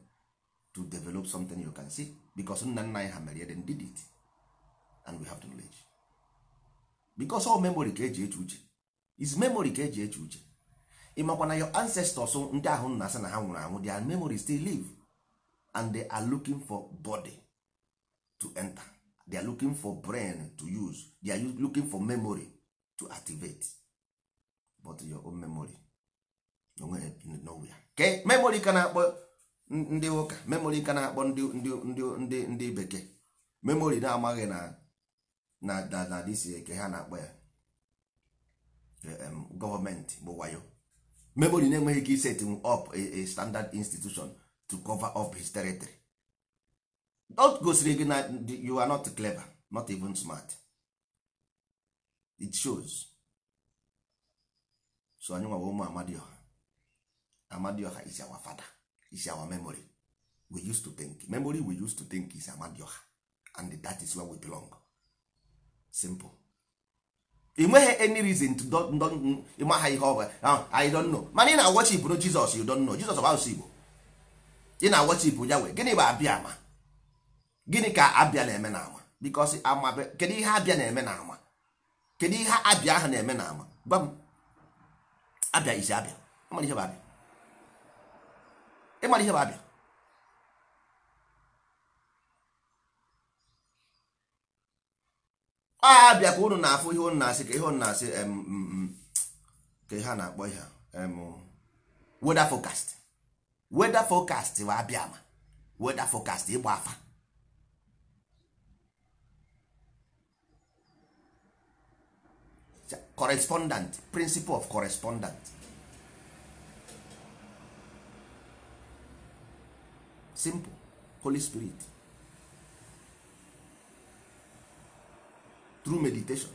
to develop something you can see because nna nna anyị ha mere then did it and we have the knowledge because all memory ka eji eche uche is memory ka eji eche uche ị makwa na your ancestors ndị ahụ nna asị na ha nwụrụ anwụ their memory still live and they are looking for body to enter they are looking for brain to use they are looking for memory to activate but your own memory nowhere ke memory ka na-akpọ ndị ụka memory ka na-akpọ ndị ndị ndị ndị bekee memory na-amaghị na na dadadisi eke eh, ha na-akpọ ya gọọmenti bụ wayo memory na-enweghị ka iset up a standard institution to cover up his territory dot gosiri gị na you are not clever not even smart it shows so anyị nwawa ụmụ amadioha amadioha is our father is our memory we used to think memory we used to think is amadioha and that is where we belong simple nweghị any reason to ịma ha ihe ọbụla I don't know mana ị na-awọchipụ no Jizọs you don't know Jizọs bụ Igbo ị na-awọchipụ ya wee gịnị bụ abịa ka abịa na-eme na ama ihe abịa na-eme na ama ihe abịa ahụ na-eme na ama gwa isi abịa ịmara ihe bụ abịa a bịa ka unu na-afụ ihe unu na-asị ka ihe unu na-asị ka ha na-akpọ ihe weather forecast weather forecast bụ abịa ma weather forecast ịgba afa correspondent principle of correspondent simple holy spirit through meditation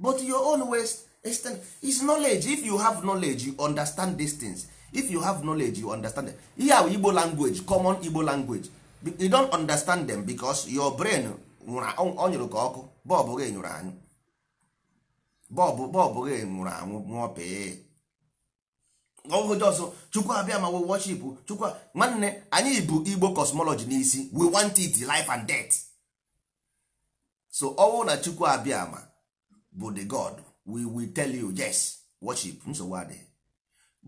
but your own ways is knowledge if you have knowledge you understand these things if you have knowledge you understand them. ihe ahụ igbo language common igbo language you don't understand them because your brain ọ nyụrụ ka ọkụ bọbụ gị nyụrụ anyụ bọbụ bọbụ gị nwụrụ anwụ nwụọ pee ọhụụ jọsọ chukwu abịa ma we worship chukwu nwanne anyị bụ igbo cosmology n'isi we want it life and death so ọnwụ na chukwu abịa ama bụ the god we will tell you yes worship hmm? nsogbu adịghị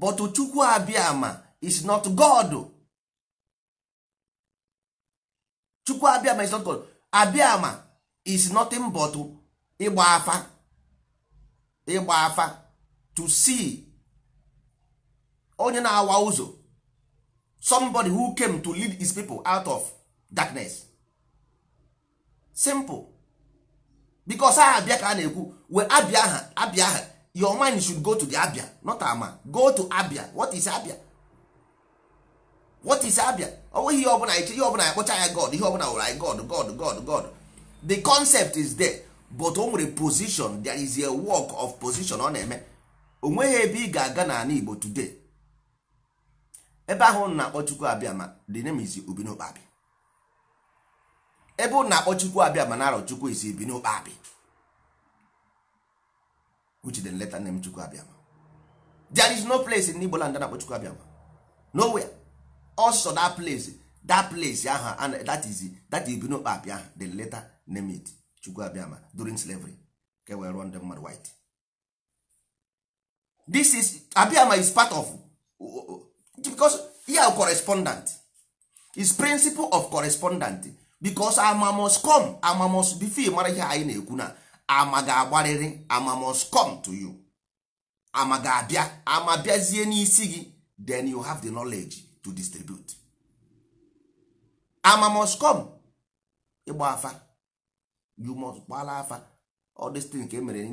but chukwu abịa ama is not god chukwu abịa ama is not god abịa ama is nothing but ịgba afa ịgba afa to see onye na-awa ụzọ somebody who came to lead his people out of darkness simple because aha abịa ka a na-ekwu we abịa aha abịa aha your mind should go to the abịa not ama go to abịa what is abịa what is abịa ọ ihe ọbụla ihe ọbụla akpọcha ya god ihe ọbụla wụrụ anyị god god god god the concept is there but o nwere position there is a work of position ọ na-eme o nweghị ebe ị ga-aga n'ala igbo today ebe ahụ na-akpọ abịa ma the name is ubinokpabi ebe ụnụ na-akpọ chukwu abịa ma na-arọ chukwu isi bi n'okpe abịa which is leta name chukwu Abịama. there is no place in Igbo land na-akpọ chukwu Abịama. nowhere also that place that place aha that is that is abịa the letter name it chukwu Abịama during slavery ka e wee rụọ ndị mmadụ white this is abịama is part of because here correspondent is principle of correspondent because ama must come ama must bifil mara ihe anyị na-ekwu na ama ga-agbarịrị ama must come to you ama ga-abịa ama bịazie n'isi gị then you have the knowledge to distribute I must come ịgba afa you must gbala afa all this thing ka emere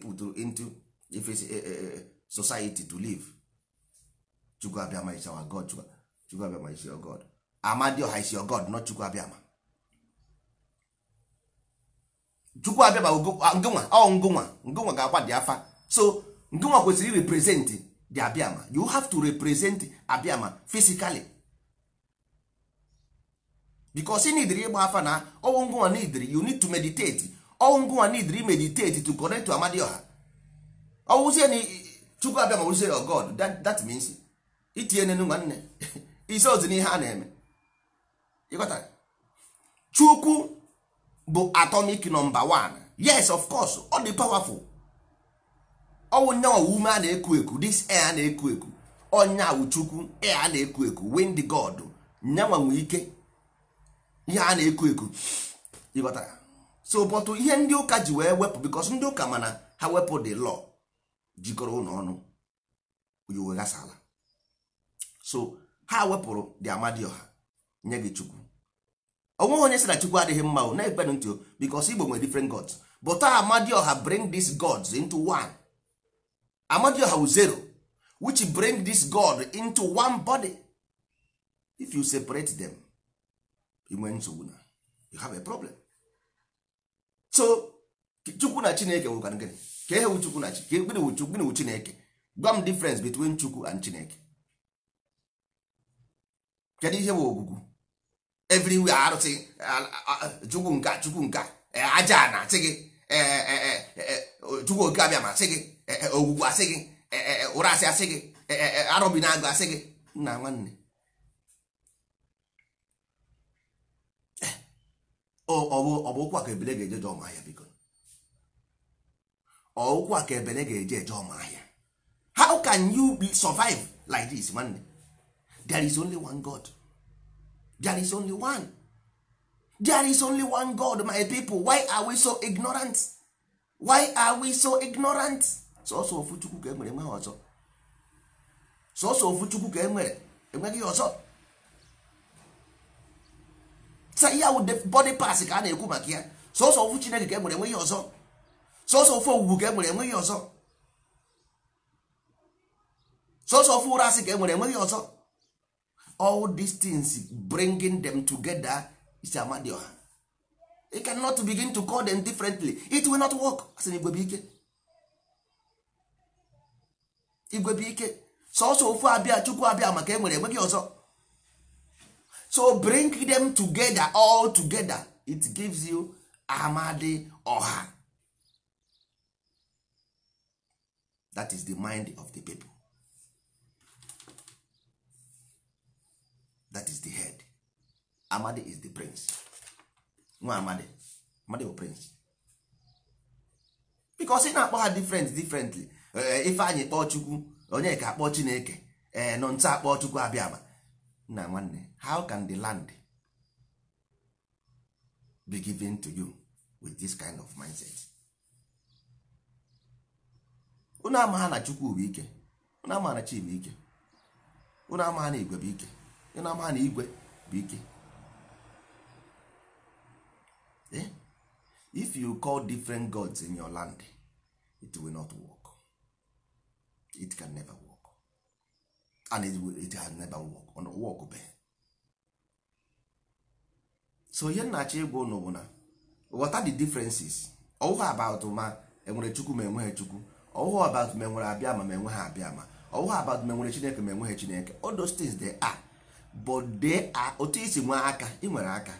pụtụrụ into if it's a, a, a society to live chukwu abịama is our god chukwu abịama is your god amadioha is your god not chukwu abịama chukwu abịa ngụnwa ah, ọ ngụnwa ngụnwa ga-agba dị afa so ngụnwa kwesịrị represent the abịama you have to represent abịama physically because ị nidiri ịgba afa na ọnwụ ngụnwa nidiri you need to meditate ọnwụ ngụnwa nidiri meditate to connect to amadioha ọwụzie na chukwu abịa ma wụzie your oh god that, means itinye nenu nne isi ozi n'ihe a na-eme ịghọtara chukwu bụ atomic nọmba one yes of course ọ dị powerful ọnwụ nyanwa ume a na-eku eku this air a na-eku eku ọnya chukwu air a na-eku eku wind god nyanwa ike ihe a na-eku eku ịghọtara so but ihe ndị ụka ji wee wepụ bikos ndị ụka mana ha wepụ the lọ jikọrọ ụlọ ọnụ uwe ghasala so ha wepụrụ dị amadioha nye gị chukwu onweghị onye sị na chukwu adịghị mma o na-ekpe ntị because igbo nwere different gods but amadioha bring these gods into one amadioha wu zero which bring this god into one body if you separate them inwe nsogbu na you have a problem so chukwu na chineke wụkwana gịnị ka ihe wu chukwu na gịnị wu chineke gwa difference between chukwu and chineke kedu ihe bụ ogwugwu everywhere arụsị chukwu nke chukwu nka eh, aja ana asị gị chukwu oke abịa ma asị gị ogwugwu asị gị ụra asị asị gị arọbi na agụ asị gị nna nwanne eh, ọ bụ ụkwụ a ka ebele ga-eje je ọma ahịa biko ọ ụkwụ a ka ebele ga-eje eje ọma ahịa how can you be survive like this nwanne there is only one god there is only one there is only one god my people why are we so ignorant why are we so ignorant sọsọ ofu chukwu ka enwere enweghị ọzọ sọsọ ofu chukwu ka enwere enweghị ọzọ ya wụ body pass ka a na-ekwu maka ya sọsọ ofu chineke ka enwere enweghị ọzọ sọsọ ofu owuwu ka enwere enweghị ọzọ sọsọ ofu ụra asị ka enwere enweghị ọzọ all these things bringing them together is amadioha you cannot begin to call them differently it will not work as an igwebike igwebike sọsọ ofu abịa chukwu abịa maka e nwere enweghị ọzọ so bring them together all together it gives you amadi ọha that is the mind of the people that is the head amadi is the prince nwa amadi amadi bụ prince because ị na-akpọ ha different differently eh, ife anyị kpọọ chukwu onye ka akpọ chineke ee eh, nọ nta akpọ chukwu abịama nna nwanne how can the land be given to you with this kind of mindset unu ama na chukwu bụ ike unu amaghana ha chi bụ ike unu amaghana igwe bụ ike ị na-ama na igwe bụ ike eh? if you call different gods in your land it will not work it can never work and it, will, it has never work on work be so ihe nnachi ịgwa ụnụ bụ na what are the differences ọwụwa about ma enwere chukwu ma enweghị chukwu ọwụwa about ma enwere abịa ma ma e enweghị abịa ma ọwụwa about ma enwere chineke ma enweghị chineke all those things they are but are otu isi nwee aka ị nwere aka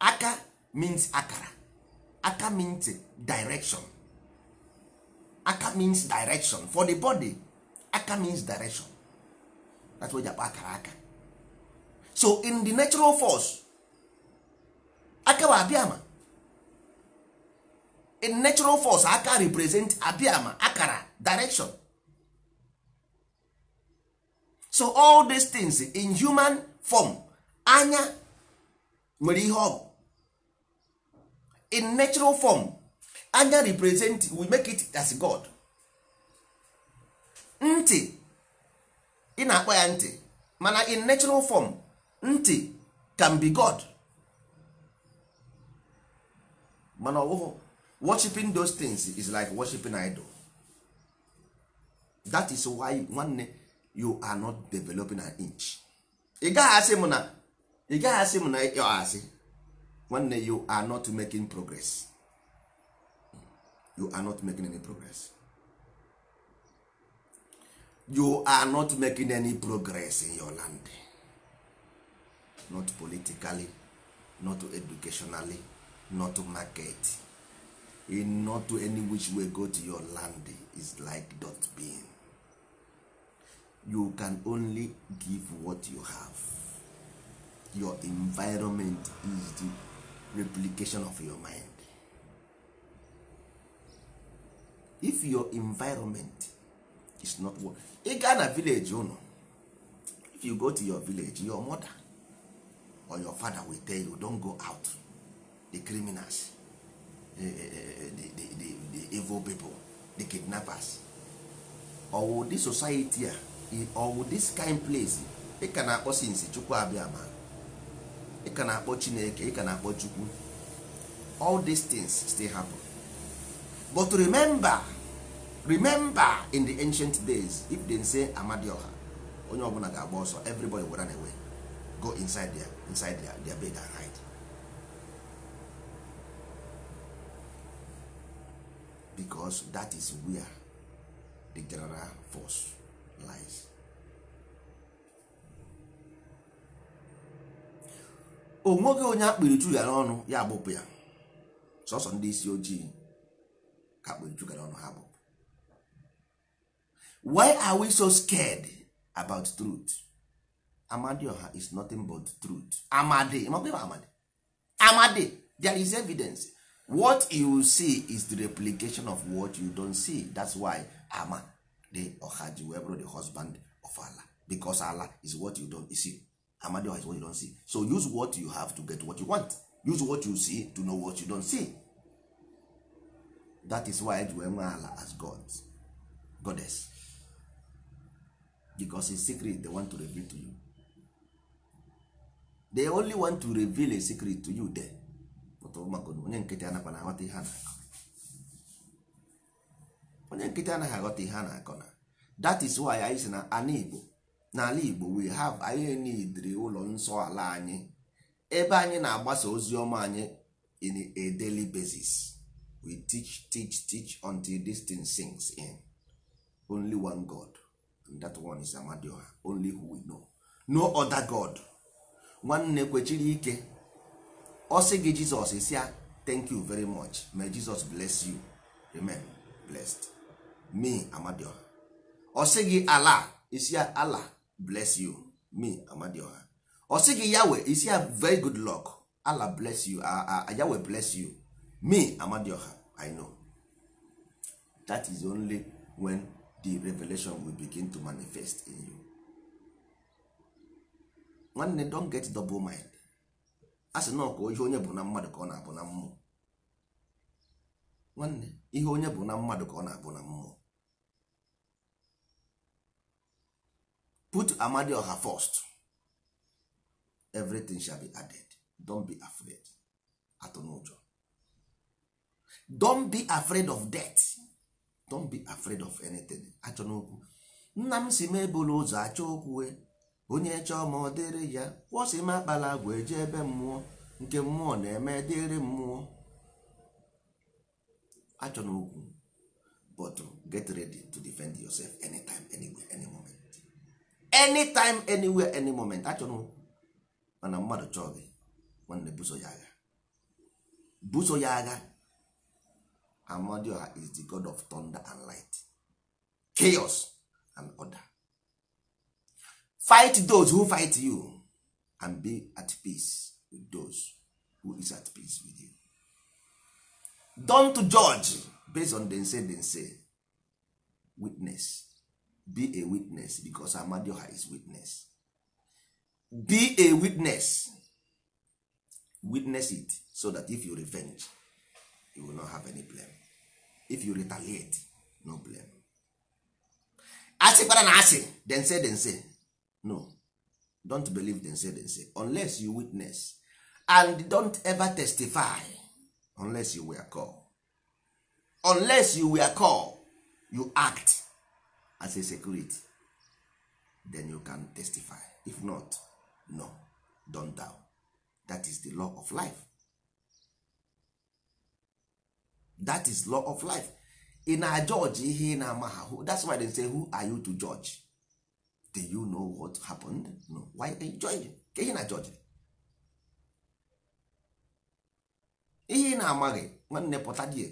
aka means akara aka means direction aka means direction for the body aka means direction that's why japa akara aka so in the natural force aka bụ ama in natural force aka represent ama akara direction so all these things in human form anya nwere ihe ọ bụ in natural form anya represent we make it as god ntị ị na-akpọ ya ntị mana in natural form ntị can be god mana ọbụghị worshiping those things is like worshiping idol that is why nwanne you are not developing an inch ị gaghị asị m na ị gaghị asị m na ịkpọ asị nwanne you are not making progress you are not making any progress you are not making any progress in your land not politically not educationally not market in not any which way go to your land is like dot being you can only give what you have your environment is the replication of your mind if your environment is not what ị gaa na village unu if you go to your village your mother or your father will tell you don't go out the criminals the, eh, eh, eh, the, the, the, the evil people the kidnappers or the society a ah, ọwụ this kind place ị ka na-akpọ sinsi chukwu abịa ma ị ka na-akpọ chineke ị ka na-akpọ chukwu all these things still happen but remember remember in the ancient days if they say amadioha onye ọbụla ga-agba ọsọ everybody will run away go inside their, inside their, their bed and hide because that is where the general force life. o nweghị onye akpịrị ju ya n'ọnụ ya agbụpụ ya sọsọ ndị isi ojii ka akpịrị ju ya n'ọnụ ha agbụpụ why are we so scared about truth amadioha is nothing but truth amadi amadi amadi there is evidence what you see is the replication of what you don't see that's why ama the ọha ji wee bụrụ the husband of ala because ala is what you don see amadioha is what you don see so use what you have to get what you want use what you see to know what you don see that is why eji wee nwee ala as God goddess because his secret they want to reveal to you they only want to reveal a secret to you there but onye nkịtị anakwa na aghọta ihe a na-akọ onye nkịtị anaghị aghọta ihe a na-akọ na that is why anyị si na ana Igbo n'ala Igbo we have anyị nidiri ụlọ nsọ ala anyị ebe anyị na-agbasa ozi ọma anyị in a daily basis we teach teach teach until this thing sings in only one God and that one is Amadioha only who we know no other God nwanne kwechiri ike ọ sị gị Jizọs isi ya thank you very much may Jesus bless you amen blessed me amadioha ọ sị gị ala isi ala bless you me amadioha ọ sị gị yawe isi ya very good luck ala bless you ah, ah, ah, yawe bless you me amadioha i know that is only when the revelation will begin to manifest in you nwanne don get double mind a sị na ihe onye bụ na mmadụ ka ọ na-abụ na mmụọ nwanne ihe onye bụ na mmadụ ka ọ na-abụ na mmụọ put her first everything shall be added don't be afraid atụnụjọ don't be afraid of death don't be afraid of anything achọ nna m si m ebulu ụzọ achọ onye chọọ ma ọ dịrị ya kwụsị m akpala agwa eje ebe mmụọ nke mmụọ na-eme dịrị mmụọ achọ n'okwu but get ready to defend yourself anytime anywhere any moment anytime anywhere any moment achọrọ mana mmadụ chọọ gị nwanne buso ya agha buso ya agha amadioha is the god of thunder and light chaos and order fight those who fight you and be at peace with those who is at peace with you don't judge based on them say them say witness be a witness because amadioha is witness be a witness witness it so that if you revenge you will not have any blame if you retaliate no blame asịkwara na asị then say then say no don't believe then say then say unless you witness and don't ever testify unless you were called unless you were called you act as a security then you can testify if not no don doubt that is the law of life that is law of life ị na judge ihe ị na-ama ahụ that's why they say who are you to judge do you know what happened no why you judge ka ihe na judge ihe ị na-amaghị nwanne pụta die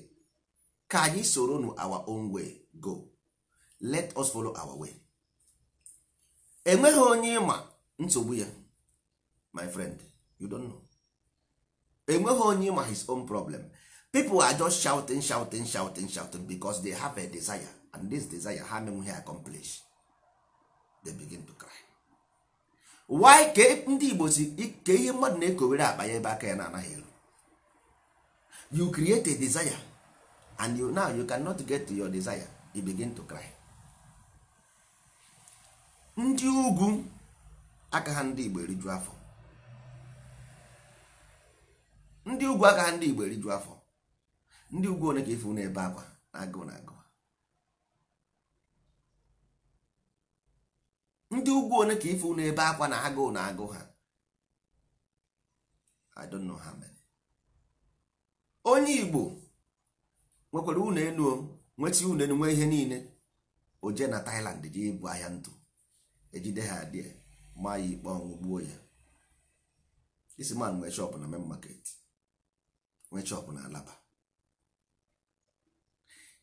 ka anyị soro nu our own way go let us follow our way enweghị onye ịma nsogbu ya my friend you don't know enweghị onye ịma his own problem people are just shouting shouting shouting shouting because they have a desire and this desire ha menweghị accomplish they begin to cry why ka ndị igbo si ka ihe mmadụ na-ekowere akpa ya ebe aka ya na-anaghị eru you create a desire and you, now you cannot get to your desire you begin to cry ndị ugwu aka ha ndị Igbo eriju afọ ndị ugwu aka ha ndị Igbo eriju afọ ndị ugwu one ka ifu na-ebe akwa na agụụ na agụ ndị ugwu one ka ifu na-ebe akwa na agụụ na agụụ ha I don't know ha mere onye Igbo nwekwara ụlọ enu nweta ụlọ enu nwee ihe niile o jee na Thailand jee ibu ahịa ntụ ejide ha adị ma ya ikpe ọnwụ gbuo ya isi man nwee shop na main market nwee shop na alaba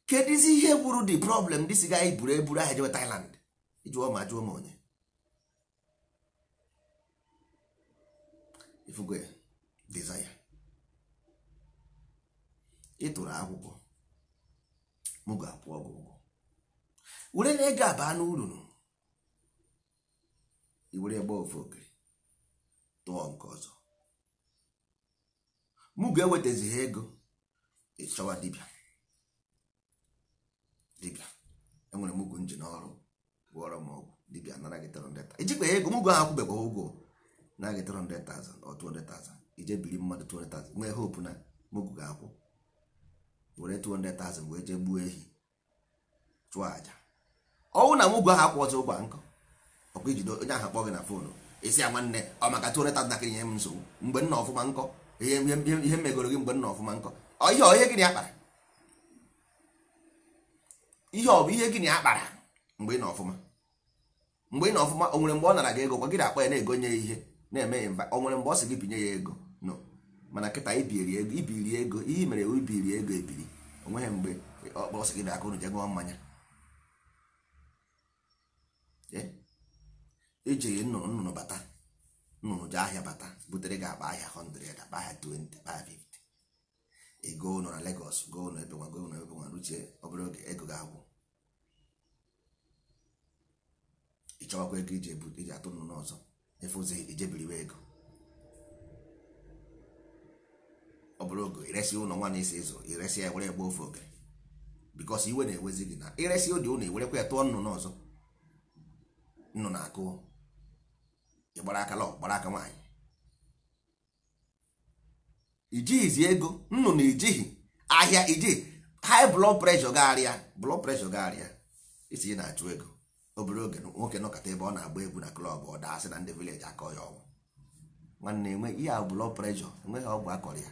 kedụzi ihe gburu the problem dị dịsị ga e eburu eburu aha jewe Thailand jụọ ma jụọ ma onye ifugo ya desire ịtụrụ akwụkwọ m ga-akwụ ọgwụ ụgwọ were na ego abaa n'urunu iwere ebe ofu okiri tụọ nke ọzọ mụ ga-ewetazi ha ego ịchọwa dibia dibịa enwere m ugwu nji n'ọrụ gwọrọ m ọgwụ dibịa nara gị 300,000 ijikpa ego mụgwọ ahụ kwụbekwa ụgwọ na gị 300,000 ọ 200,000 ije biri mmadụ 200,000 nwee hope na mụgwụ ga-akwụ were 200,000 wee jee gbuo ehi chụọ aja ọnwụ na mụgwọ ahụ akwụ ọzọ ụgwa nkọ ọkwa ijido onye ahụ kpọ gị na foonu esi ya nwanne ọ maka tụreta ntakịrị ihe m nsogbu mgbe nna ọfụma nkọ ihe mgbe ihe ọ ihe gịnị akpara ihe ọ bụ ihe gịnị akpara mgbe ị na ọfụma mgbe ị na ọfụma o mgbe ọ nara gị ego kwa gị na-akpọ ya na-egonye ya ihe na-eme ya mba o nwere mgbe ọ sị gị binye ya ego nọ? mana nkịta ibiri ego ibiri ego ihe mere ibiri ego ebiri o nweghị mgbe ọ kpọọ sị gị na aka ụnụ jegụọ mmanya eh? ejeghe nnụnụ nnụnụ bata nnụnụ ji ahịa bata butere gị akpa ahịa 100 akpa ahịa 20 akpa ahịa 50 ego nọ na Lagos go nọ ebe nwa go nọ ebe nwa ruchie obere oge ego agwụ ịchọwakwa ego iji atụ nnụnụ ọzọ efe ijebiriwe ego ọ oge iresi ụlọ nwa na ịzụ iresi ya were egbe ofe oge iwe na-ewezi gị na iresi ụlọ ewerekwa ya tụọ nnụnụ ọzọ nnụnụ ị gbara aka lọ gbara aka nwaanyị ijighizi ego nnụnụ ijighi ahịa ijighi high blood pressure gagharịa blood pressure gagharịa isi na-achụ ego obere oge nwoke nọkọta ebe ọ na-agba egwu na klọb ọ asị na ndị vileji akọ ya ọgwụ nwanne enwe ihe a blood pressure enweghị ọgwụ akọrọ ya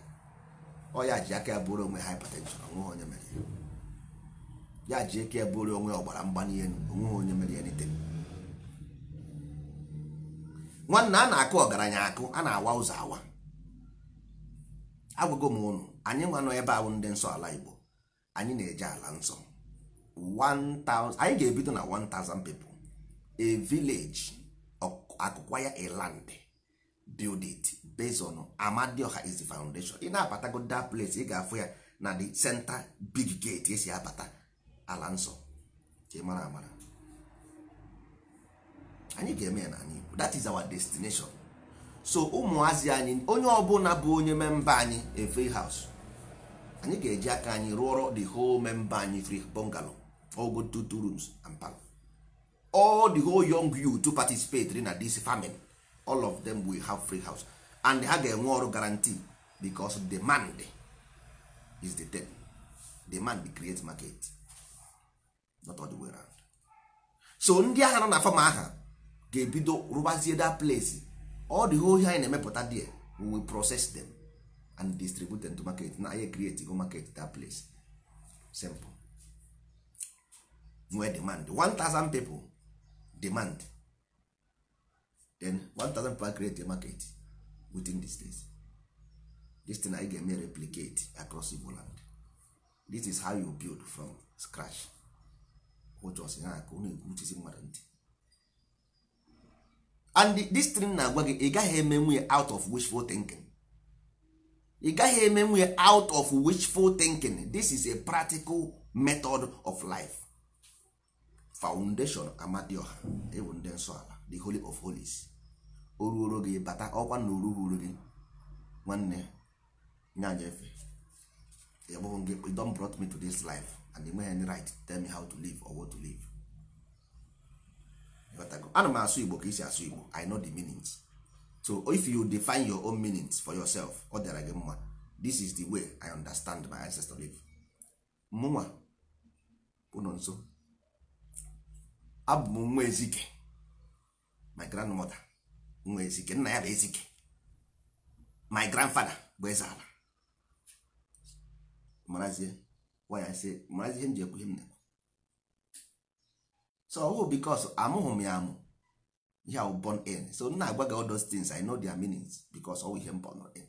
ọ ya ji aka ya bụrụ onwe hypertension onweghị onye mere ya ya ji aka ya bụrụ onwe ọgbara mgbali elu onweghị onye mere ya nitere nwanne a na-akụ ọgaranya akụ a na-awa ụzọ awa agwago m ụnụ anyị nwa ebe ahụ ndị nsọ ala Igbo anyị na-eje ala nsọ 1000 anyị ga-ebido na 1000 people a village akụkwaya ya land build it Amadioha is foundation ị na-abatago that place ị ga-afụ ya na the center big gate esi abata ala nsọ ka ị mara amara anyị ga-eme ya anyị Igbo that is our destination so ụmụazị anyị onye ọbụla bụ onye memba anyị a free house anyị ga-eji aka anyị rụọrọ the whole memba anyị free bungalow all go two rooms and parlour all the whole young youth to participate na this famine all of them will have free house and ha ga-enwe ọrụ guarantee because demand is the thing demand create market not all the way around so ndị agha nọ na fama aha ga-ebido rụbazie that place all di whole ihe anyị na-emepụta there we process them and distribute them to market na anyị create go market that place simple nwee demand 1000 people demand then 1000 people create the market within this days this thing anyị ga-eme replicate across Igbo land this is how you build from scratch ụjọsi ha aka ọ na-egwu uchisi mmadụ ntị and this thing na-agwa gị ị gaghị emenwu ya out of wishful thinking ị gaghị emenwu ya out of wishful thinking this is a practical method of life foundation amadioha ewu ndị nsọ ala the holy of holies o ruoro gị bata ọkwa na oruhuru gị nwanne nyanyefe egbụghị gị don brought me to this life and the man right tell me how to live or what to live ana m asụ igbo ka isi asụ igbo i know the meanings so if you define your own meanings for yourself ọ dịara gị mma this is the way i understand my ancestor live mụnwa ụnọ nso abụ m nwa ezike my grandmother nwa ezike nna ya bụ ezike my grandfather bụ eze ala marazie waya sị marazie ihe m ji ekwu ihe m na so ọwụ because amụghị m ya amụ ihe awụ born in so nna na-agwa gị all those things I know their meanings because ọwụ ihe m born in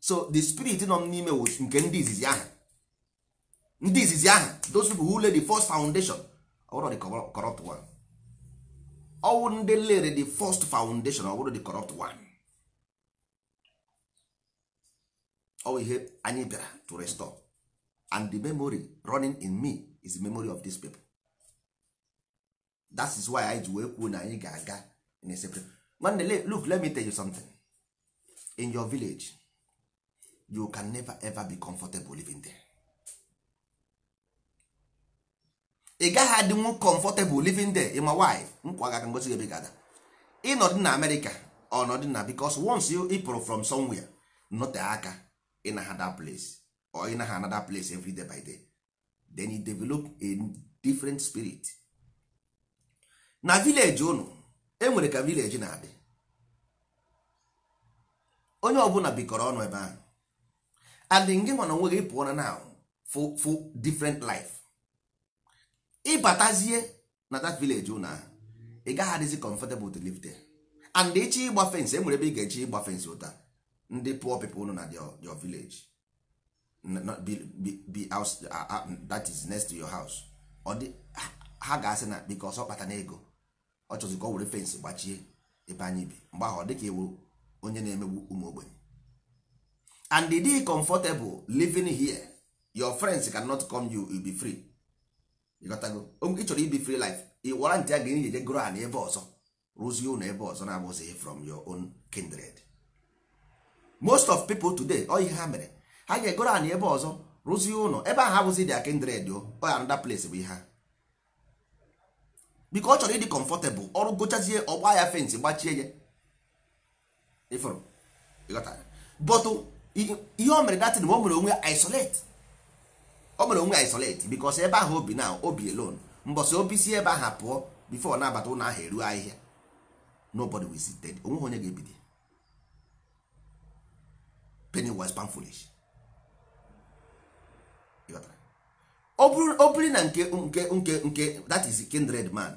so the spirit nọ m n'ime wụ nke ndị izizi ahụ ndị izizi ahụ those people who lay the first foundation ọwụrụ the corrupt one ọwụ ndị lere the first foundation ọwụrụ the corrupt one ọwụ ihe anyị bịara to restore and the memory running in me is the memory of these people that is why anyị ji wee kwuo na anyị ga-aga in separate nwanne look let me tell you something in your village you can never ever be comfortable living there ị gaghị adịnwu comfortable living there ịma why nkwa gaka ngosi ebe gada ịnọdụ na amerịka ọnọdụ na because once you ịpụrụ from somewhere note aka ịnaha another place or ịnaha another place every day by day then you develop a different spirit na village unu enwere ka village na-adị onye ọbụla bikọrọ ọnụ ebe ahụ and nge nwa na onwe gị pụọ na now for for different life ịbatazie na that village unu ahụ ị gaghị adịzi comfortable to live there and echi ịgba fence enwere ebe ị ga-echi ịgba fence ụta ndị poor people unu na your village not be, be, be house uh, uh, uh, that is next to your house ọ dị ha ga-asị na because ọ kpata na ego ọ chọzụ ka ọ were fensị gbachie ebe anyị bi mgbe ahụ ọ dị ka ewu onye na-emegbu ụmụ ogbenye and the day comfortable living here your friends cannot come you will be free ịgotago ị chọrọ ibi free life ị wara ntị a ga enyi jegoro ha n'ebe ọzọ rụzie ụlọ ebe ọzọ na-abụzighị from your own kindred most of people today ọ ihe ha mere ha ga-egoro anyị ebe ọzọ rụzie ụlọ ebe ahụ abụzi dị akendred anada place bụ ihe ha biko ọ chọrọ ịdị kọmfọtebụl ọrụ gochazie ọgba ya fensị gbachie ya ịfụrụ ihe o mere datin ma o mere onwe ya isolate o mere onwe ya isolate bikos ebe ahụ obi na obi elon mbọsi obi si ebe ahụ pụọ bifo na-abata ụlọ ahụ eruo ahịhịa nobody visited onweghị onye ga-ebido Pennywise pan foolish ọ bụrụ na nke nke nke that is kindred man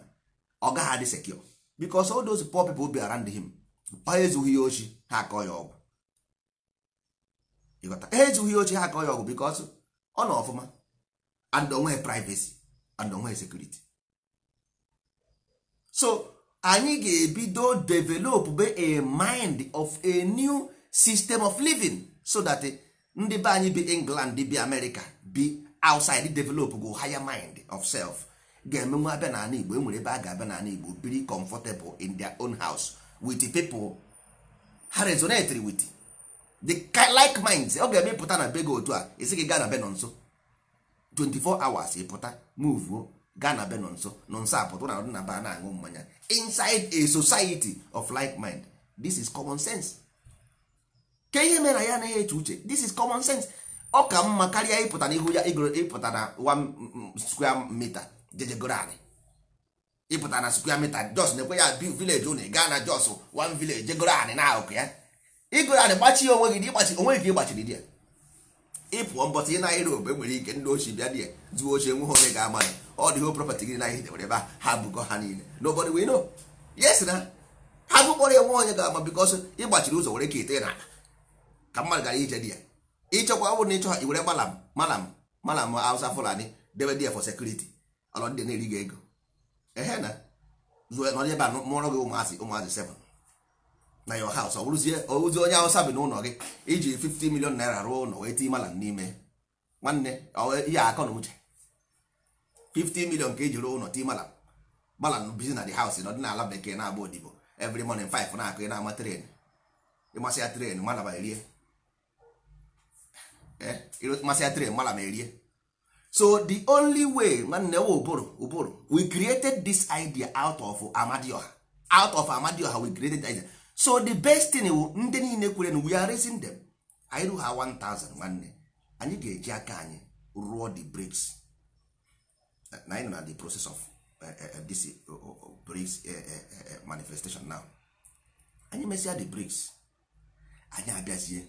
ọ gaghị adị secure because all those poor people be around him ha ezughị ya ochi ha akọ ya ọgwụ ha ezughị ya ochi ha akọ ya ọgwụ because ọ nọ ọfụma and onwe privacy and onweghị security so anyị ga-ebido develop a mind of a new system of living so that ndị be anyị bi England bi America be outside develop go higher mind of self ga-eme nwa abịa n'ala igbo enwere ebe a ga-abịa n'ala igbo biri comfortable in their own house with people ha resonate with the like minds ọ ga-eme pụta na be gị otu a esi gị gaa na be nso 24 hours ịpụta move gaa na be nọ nso nọ nso na ọdụ na ba na-aṅụ mmanya inside a society of like mind this is common sense ke ihe mere ya anaghị eche uche this is common sense ọ ka mma karịa ịpụta n'ihu ya mm, mm, ịpụta na square mita jejegoro ịpụta na square mita jos na-ekwe ya bi vileji unu gaa na jos wan vileji jegoro anị na ahụkụ ya igoro anị gbachi onwe gị ịgbachi onwe gị ịgbachiri di ya ịpụọ mbọtị na Europe enwere ike ndị ochie bịa di ya zuo ochie nwe onye ga-ama ọ dịho property gị na ihe debere ebe ha bụkọ ha niile nobody we yes na ha gụkpọrọ ya nwe onye ga-ama because ịgbachiri ụzọ were ka ite na ka mmadụ gara ije di ya ịchọkwa ọ bụrụ na ịchọ iwere malam malam malam Hausa Fulani debe dị for security ọlọ ndị na-eri ego ehe na nọrọ ebe a mụọrọ gị ụmụazị ụmụazị seven na your house ọ bụrụzie ozi onye Hausa bi n'ụlọ gị iji 50 million naira rụọ ụlọ wee tinye malam n'ime nwanne ihe akọ na uche 50 million ka eji rụọ ụlọ tinye malam malam bizi na bekee na odibo 5 na-akụ ị na-ama ya tren erie masị ya tren mala ma erie so the only way nwanne nwa ụbụrụ ụbụrụ we created this idea out of amadioha out of amadioha we created idea so the best thing wu ndị niile kwere na we are raising them anyị ruha 1000 nwanne anyị ga-eji aka anyị rụọ the bricks na anyị nọ na the process of this bricks manifestation now anyị mesịa the bricks anyị abịazie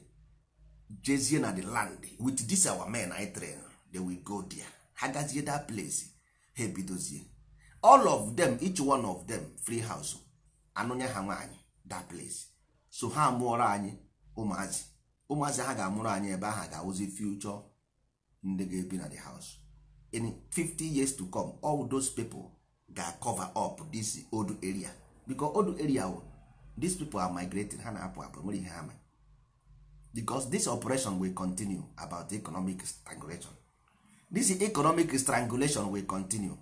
jezie na the land with this our men I train they will go there ha gazie that place ha ebidozie all of them each one of them free house anụnye ha nwaanyị that place so ha mụọrọ anyị ụmụazị ụmụazị ha ga-amụrụ anyị ebe ahụ ga-awụzi future ndị ga-ebi na the house in 50 years to come all those people ga-cover up this old area because old area oh, these people are migrating ha na-apụ apụ nwere ihe ha mere because this operation will continue about the economic strangulation this economic strangulation will continue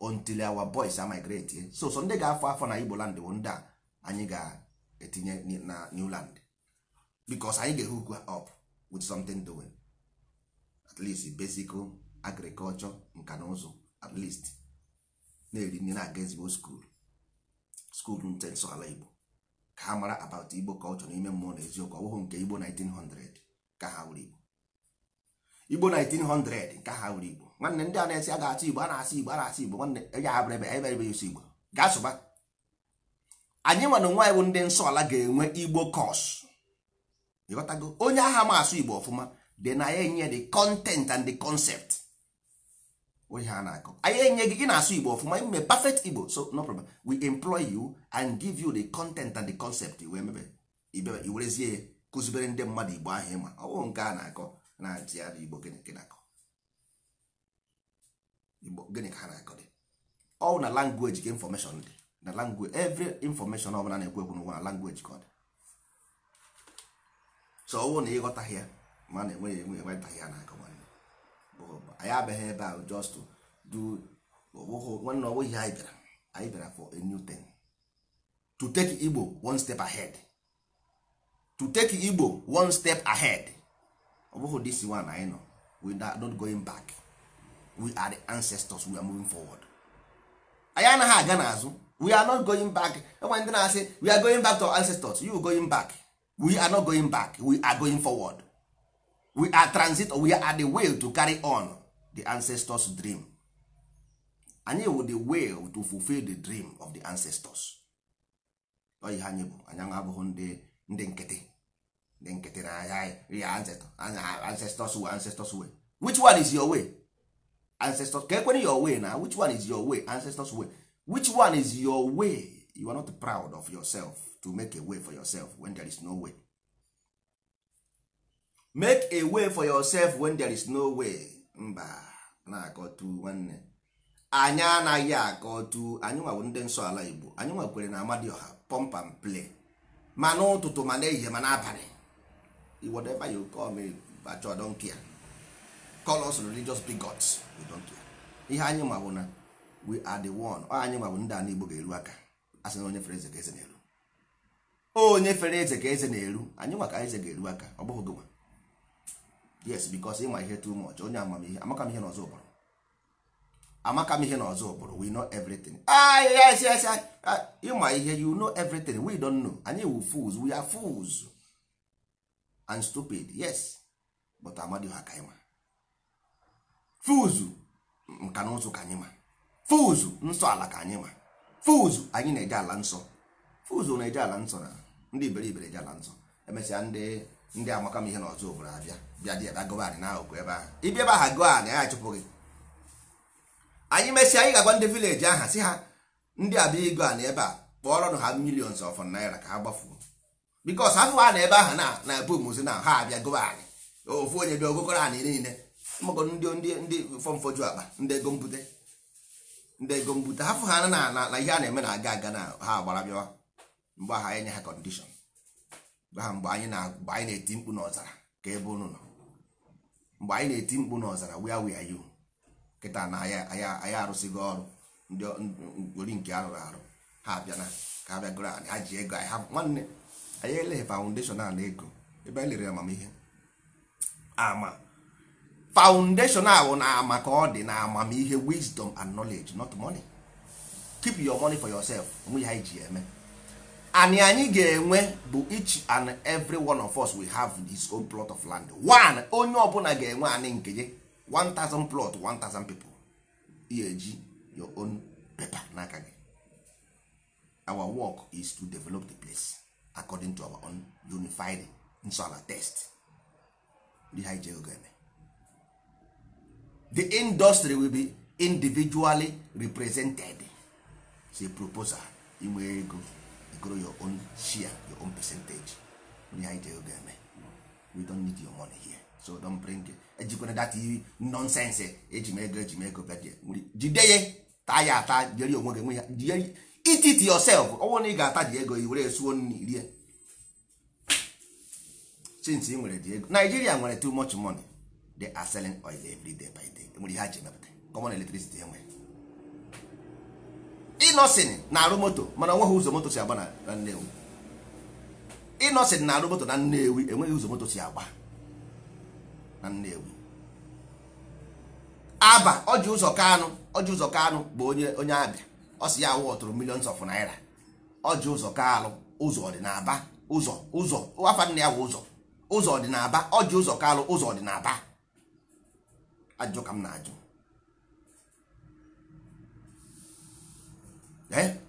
until our boys are migrate so so ndị ga-afọ afọ na igbo land ndị a anyị ga-etinye na new land because anyị ga hook up with something doing at least basic agriculture nka na ụzụ at least na-eri nri na-aga ezigbo school school nte ala igbo ka ha mara about igbo culture n'ime mmụọ na eziokwu ọ nke igbo 1900 ka ha wuru igbo igbo 1900 ka ha wuru igbo nwanne ndị a na-esi a ga-asị igbo a na-asị igbo a na-asị igbo nwanne ya abụrụ ebe, abịrịbe eberebe yusi igbo gaa sụba anyị nwana nwa bụ ndị nsọ ala ga-enwe igbo kos ịghọtago onye agha ma asụ igbo ọfụma dị na ya enye the content and the concept We a na-akọ anyị enye gị ị na-asụ igbo ọfụma ime perfect igbo so no problem we employ you and give you the content and the concept wee mebe ibebe iwerezie ya kụzibere ndị mmadụ igbo ahụ ịma ọwụ nke a na-akọ na ntịara igbo gịnị na-akọ igbo gịnị ka ha na-akọ dị ọwụ na language ka information dị na language every information ọbụla na-ekwu ekwu n'ụwa na language ka ọ dị so ọwụ na ịghọtaghị ya ma na enweghị enwe enwetaghị ya na-akọ anyị abịaghị ebe a just to do nwanne ọwụ we anyị bịara anyị bịara for a new thing to take Igbo one step ahead to take Igbo one step ahead ọ bụghị this one anyị nọ we are not going back we are the ancestors we are moving forward anyị anaghị aga n'azụ we are not going back enwe ndị na-asị we are going back to our ancestors you going back we are not going back we are going forward we are transit we are the will to carry on the ancestors dream anyị wụ the will to fulfill the dream of the ancestors oyi ha anyị bụ anyị abụghị ndị ndị nkịtị ndị nkịtị na ahịa ya ancestors way ancestors way which one is your way ancestors ka ekwere your way na which one is your way ancestors way which one is your way you are not proud of yourself to make a way for yourself when there is no way make a way for yourself when there is no way mba na-akọtu nwanne anyị anaghị akọtu anyị nwawo ndị nsọ ala igbo anyị nwekwere na amadioha pump and play ma n'ụtụtụ ma n'ehihie ma n'abalị whatever you call me bacho don't care call us religious bigots we don't care ihe anyị ma na we are the one ọ anyị ma ndị ala igbo ga-eru aka asị na onye fere eze ka eze na-eru onye fere eze ka eze na-eru anyị maka eze ga-eru aka ọ bụghị gịnwa yes bikos ịma ihe too much onye amamihe amaka m ihe n'ọzọ ụbụrụ amaka m ihe n'ọzọ ụbụrụ we know everything ah yes yes ịma ah, ihe you know everything we don't know anyị wu fools we are fools and stupid yes but amadi ha ka anyị ma fools nka na ụzụ ka anyị ma fools nsọ ala ka anyị ma fools anyị na-eje ala nsọ fools na-eje ala nsọ na ndị iberibe na-eje ala nsọ emesịa ndị ndị amaka m ihe na ọzọ obodo abịa bịa dị ebe gọvanị anyị ahụkwa ebe ahụ ịbịa ebe aha gọọ anyị achụpụ gị anyị mesịa anyị ga-agwa ndị vileji aha si ha ndị abịa ịgọ anyị ebe a kpọọrọ ha milions of naira ka ha gbafuo bikos afụwa na ebe aha na na bumuzi na ha abịa gọba anyị ofu onye bịa ogokọrọ anyị niile mmago ndị ndị ndị fọmfoju akpa ndị ego mbute ndị ego mbute hafụ ha na na ihe a na-eme na aga aga na ha agbara bịawa mgbe aha enye ha kọndishọn aha mgbe anyị na-eti mkpu n'ọzara ka ebe unu nọ mgbe anyị na-eti mkpu n'ọzara where we are you na anyị arụsịgo ọrụ ndị ori nke arụrụ arụ ha abịana ka ha bịagoro anyị ha ji ego anyị ha nwanne anyị eleghị faụndeshọn a na ego ebe anyị lere amamihe ama faụndeshọn ahụ na ama ka ọ dị na amamihe wisdom and knowledge not money keep your money for yourself onwe ya anyị ji eme and anyị ga-enwe bụ each and every one of us we have this own plot of land one onye ọbụla ga-enwe anyị nke gị 1000 plot 1000 people ya eji your own paper n'aka gị our work is to develop the place according to our own unified nsọala test the industry will be individually represented it's proposal inwe ego grow your own share your own percentage ihe anyị ji oge eme we don't need your money here so don't bring ejikwana eh, that nonsense eji m ego eji m ego bịa jide ye taa ya ata jiri onwe gị nwe ya jiri eat it yourself ọnwụ na ị ga-ata ji ego i were esuo nri rie since ị nwere ji ego Nigeria nwere too much money they are selling oil every day by day nwere ihe ha ji emepụta common electricity enwe eh, ịnọsin na-arụ moto mana onweghị ụzọ moto si agba na nnewi ịnọsin na-arụ moto na nnewi enweghị ụzọ moto si agba na nnewi aba ọjị ụzọ kanụ ọjị ụzọ kanụ bụ onye onye abịa ọ si ya awụ ọtụrụ millions of naira ọjị ụzọ kalụ ụzọ ọdịnaba ụzọ ụzọ afa nna ya wụ ụzọ ụzọ ọdịnaba ọjị ụzọ kalụ ụzọ ọdịnaba ajụ ka m na-ajụ eh?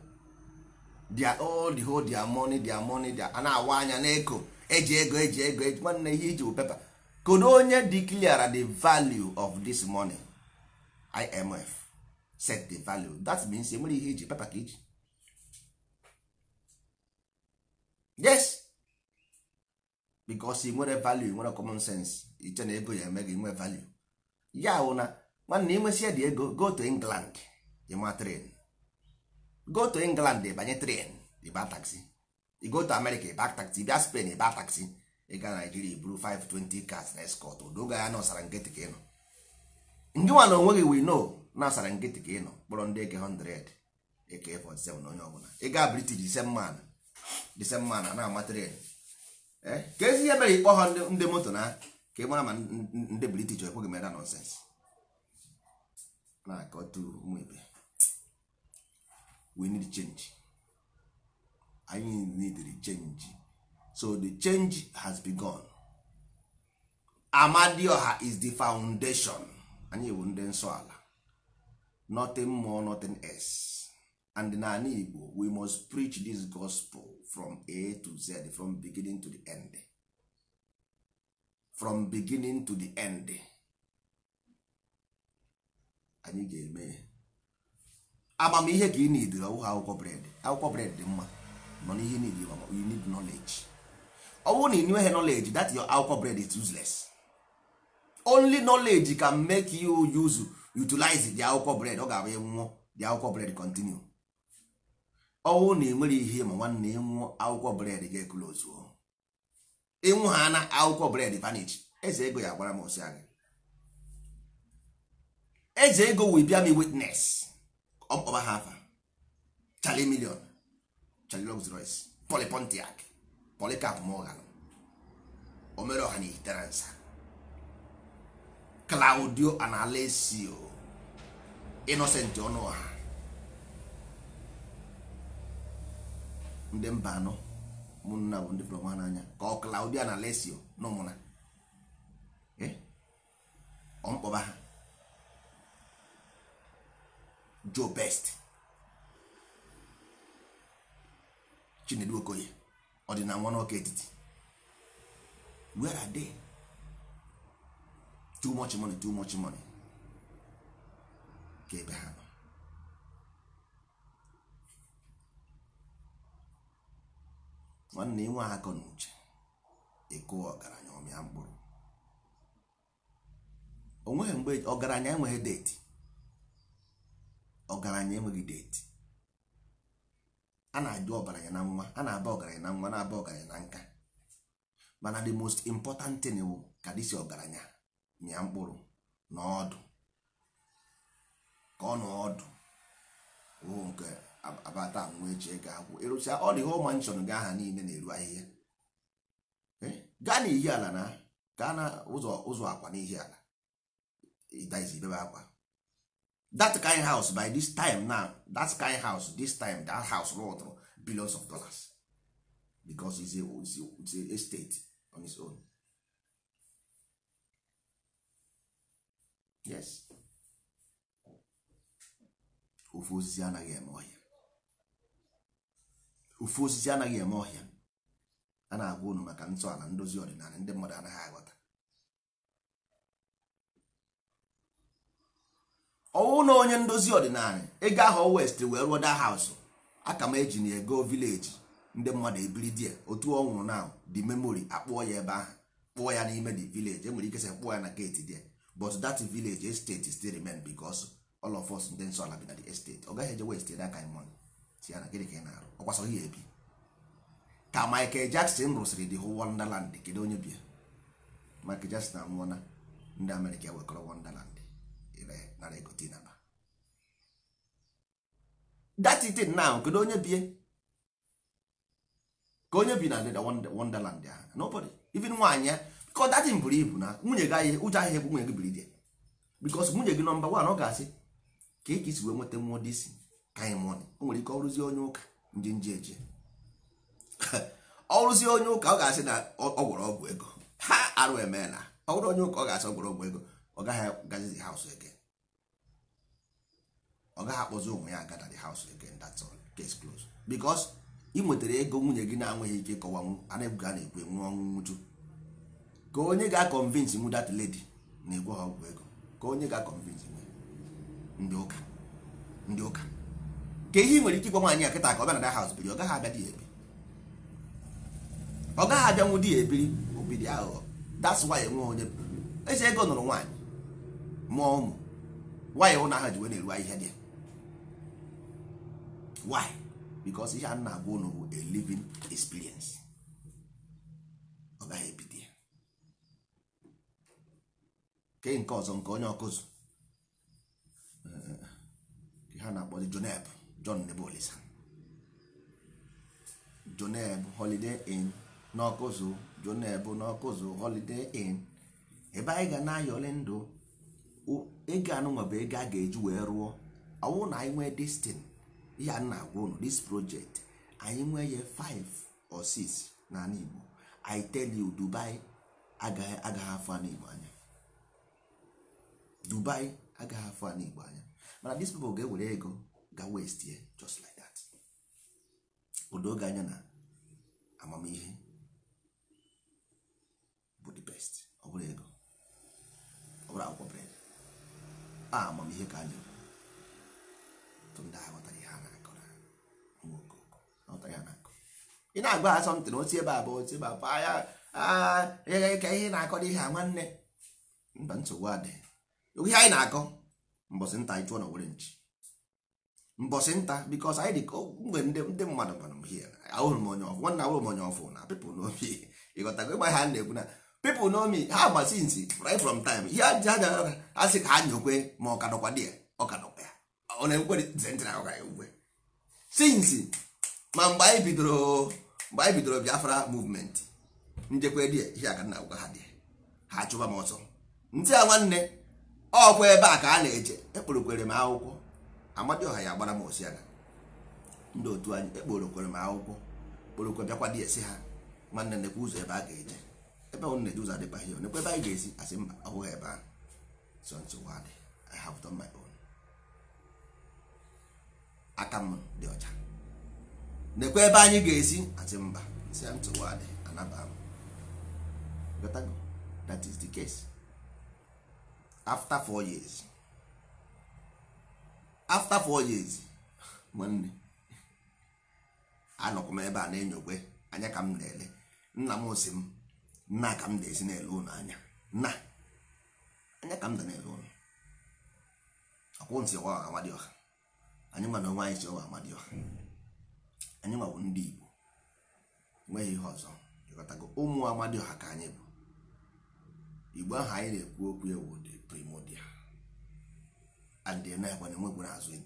dia all the whole their money their money dia a na-awa anya n'eko eji ego eji ego eji nwanne ihe iji pepa kodo onye declare the value of this money imf set the value that means enwere ihe iji pepa ka iji yes because ị nwere value nwere common sense iche na ego ya eme gị nwe value ya wụ na nwanne ị nwesịa dị ego go to england ịma tren go to england banye tren ịba taxi you go to america ịba taxi bịa spain ịba taxi ịga nigeria iburu 520 cars na escort odoga ya na ọsara nkịtị ka ịnọ ndị nwa na onwe gị we know na ọsara nkịtị ka ịnọ kpọrọ ndị eke 100 eke 47 na onye ọbụla ịga british disemman disemman na-ama tren eh? ka ezi ihe mere ịkpọ ha ndị moto na ka ị mara ma ndị british ekweghị mere nonsens na-akọtu ụmụ ibe we need change anyị need change so the change has begun amadioha is the foundation anyị bụ ndị nsọ ala nothing more nothing else and n'ala igbo we must preach this gospel from a to z from beginning to the end from beginning to the end anyị ga-eme amamihe ka ị na nid ọwụghị akwụkwọ bred akwụkwọ bred dị mma nọ n'ihe nid you need knowledge ọ bụrụ na ị nweghị knowledge that akwụkwọ bred is useless only knowledge can make you use utilize the akwụkwọ bred ọ ga-abụ nwụọ the akwụkwọ bred continue ọnwụ na enwere ihe ma nwanne ịnwụọ akwụkwọ bred ga-eklozu ịnwụ ha na akwụkwọ bred vanish eze ego ya gwara m osi anyị eze ego will bear me witness ọkpọba ha afa Charlie Million Charlie Rolls Royce Poli Pontiac Polycarp Morgan Omeroha na Iteransa Claudio Analesio Innocent Ọnụọha ndị mba anọ ụmụnna bụ ndị pụrụ n'anya ka ọ Claudio Analesio na ụmụna eh? ọmkpọba ha do best chinedu okoye ọdịna nwa n'ọka etiti where are they too much money too much money ka ebe ha nọ nwanne inwe akọ na uche ịkụ ọgaranya ọmịa mkpụrụ onweghị mgbe ọgaranya enweghị deti ọgaranya enweghị deti a na-ajụ ọgaranya na nwa a na-aba ọgaranya na nwa na-aba ọgaranya na nka mana the most important thing bụ ka si ọgaranya mịa mkpụrụ na ọdụ ka ọ na ọdụ ụụ nke abata nwa eji ego akwụ ịrụsịa ọ dị ihe manshọn gị aha niile na-eru ahịhịa gaa n'ihi ala na gaa na ụzọ akwa n'ihi ala ịdazi akwa that kind house by this time now that kind house this time that house rụtụrụ billions of dollars because it's a, estate on its own yes ofu osisi anaghị eme ọhịa ofu osisi anaghị eme a na-agwa unu maka ntọala ndozi ọdịnala ndị mmadụ anaghị aghọta ọnwụ na onye ndozi ọdịnala ego ahụ west wee rụọ da haus aka m eji na ego vileji ndị mmadụ ebiri di otu ọ nwụrụ na the memory akpụọ ya ebe ahụ kpụọ ya n'ime the village enwere ikesa sị kpụọ ya na gate there but that village estate still remain because all of us ndị nsọ ala bi na the estate ọ gaghị eje west ere aka mon si ya na gịnị ka ị na-arụ ọkwasọghị ya ebi ka Michael Jackson rụsịrị the whole Wonderland kedu onye bịa Michael Jackson anwụọna ndị Amerịka wekọrọ Wonderland nara ego kedu onye bie ka onye bi na ndịda wonderland ya nobody even nwaanyị ya bikọ datin buru ibu na nwunye gị ụjọ ahịa egwu nwunye gị biri di bikos nwunye gị nọmba wan ọ ga-asị ka ị ka isi wee nweta ka anyị o nwere ike ọrụzie onye ụka ndị nje eje onye ụka ọ ga-asị na ego ha arụ emeela ọ onye ụka ọ ga-asị ọ ego ọ gaghị gazizi haus ege ọ gaghị akpọzi onwe ya agada the house again that's all case close because ị nwetara ego nwunye gị na-anweghị ike kọwanwu anaghị a na-ekwu enwe ọnwụ nwuju ka onye ga-akọnvinsi nwu that lady na-egwe ha ọgwụ ego ka onye ga-akọnvinsi nwe ndị ụka ndị ụka ka ihe nwere ike ịgwa nwaanyị a kịta ka ọ bịa na that house biri ọ gaghị abịa di ya ebi ọ gaghị abịa nwụ di ya ebiri obidi aghụghọ that's why enwe onye eze ego nụrụ nwaanyị mụọ ụmụ nwaanyị ụna aha ji wee na-eru ahịhịa dị ya why because ihe a na-agwa ụlọ bụ a living experience ọ gaghị ebido ya kee nke ọzọ nke onye ọkụzụ ha na-akpọzi joneb john nebolisa joneb holiday in n'ọkụzụ joneb n'ọkụzụ holiday in ebe anyị ga na-ayọli ndụ ego anụnwa bụ ego a ga-eji wee rụọ ọwụ na anyị nwee ihe na-agwa ụnụ this project anyị nwee ya 5 or 6 n'ala Igbo I tell you Dubai agaghị afọ ala Igbo anya Dubai agaghị afọ ala Igbo anya mana dis people ga-ewere ego ga west ya just like that odo oge anya na amamihe bụ the best ọ bụrụ ego ọ bụrụ akwụkwọ bred a amamihe ka anyị ndị agha ị na-agba ha asọmpi na osi ebe a bụ osi ebe a bụ aya ka ihe na-akọ dị ihe a nwanne mba nsogbu adịghị ihe anyị na-akọ mbọsị nta anyị chụọ na were nchi mbọsị nta bikos anyị dị ka mgbe ndị mmadụ gbara m hie ahụrụ m onye ọfụ nwanne ahụrụ m onye ọfụ na pipụl n'obi ịghọtago ịgba ha na-ekwu na pipụl n'omi ha gbasi nsi right from time ihe ji ha jara ha sị ka ha nyekwe ma ọ kadọkwa dị ya ọ ya ọ na-ekwe ntị na ọ ga-ekwe sinsi ma mgbe anyị bidoro mgbe anyị bidoro biafra movement njekwa dị ihe aka nna agwa ha dị ha chụba m ọsọ ntị a nwanne ọkwa ebe a ka a na-eje ekporokwere m akwụkwọ amadioha ya agbara m aga ndị otu anyị ekporokwere m akwụkwọ kporokwe bịakwa dị esi ha nwanne nekwa ụzọ ebe a ga-eje ebe ọ na-eje ụzọ adịba ihe nekwa ebe anyị ga-esi asị mba ọhụghị ebe ahụ so nsogbu adị I have done my own aka m dị ọcha nekwa ebe anyị ga-esi asị mba si ntụwa dị anaba m that is the case after four years after four years nwanne anọkwa m ebe a na-enyogbe anya ka m na-ele nna m si m nna ka m na-esi na-ele ụlọ anya nna anya ka m da na-ele ụlọ ọkwụ ntị ọwa amadịọha anyị mana onwe anyị si ọwa amadịọha anyị nwawo ndị igbo nweghị ihe ọzọ ịghọtago ụmụ amadioha ka anyị bụ igbo ahụ anyị na-ekwu okwu ewu dị primordial and na-enwegwu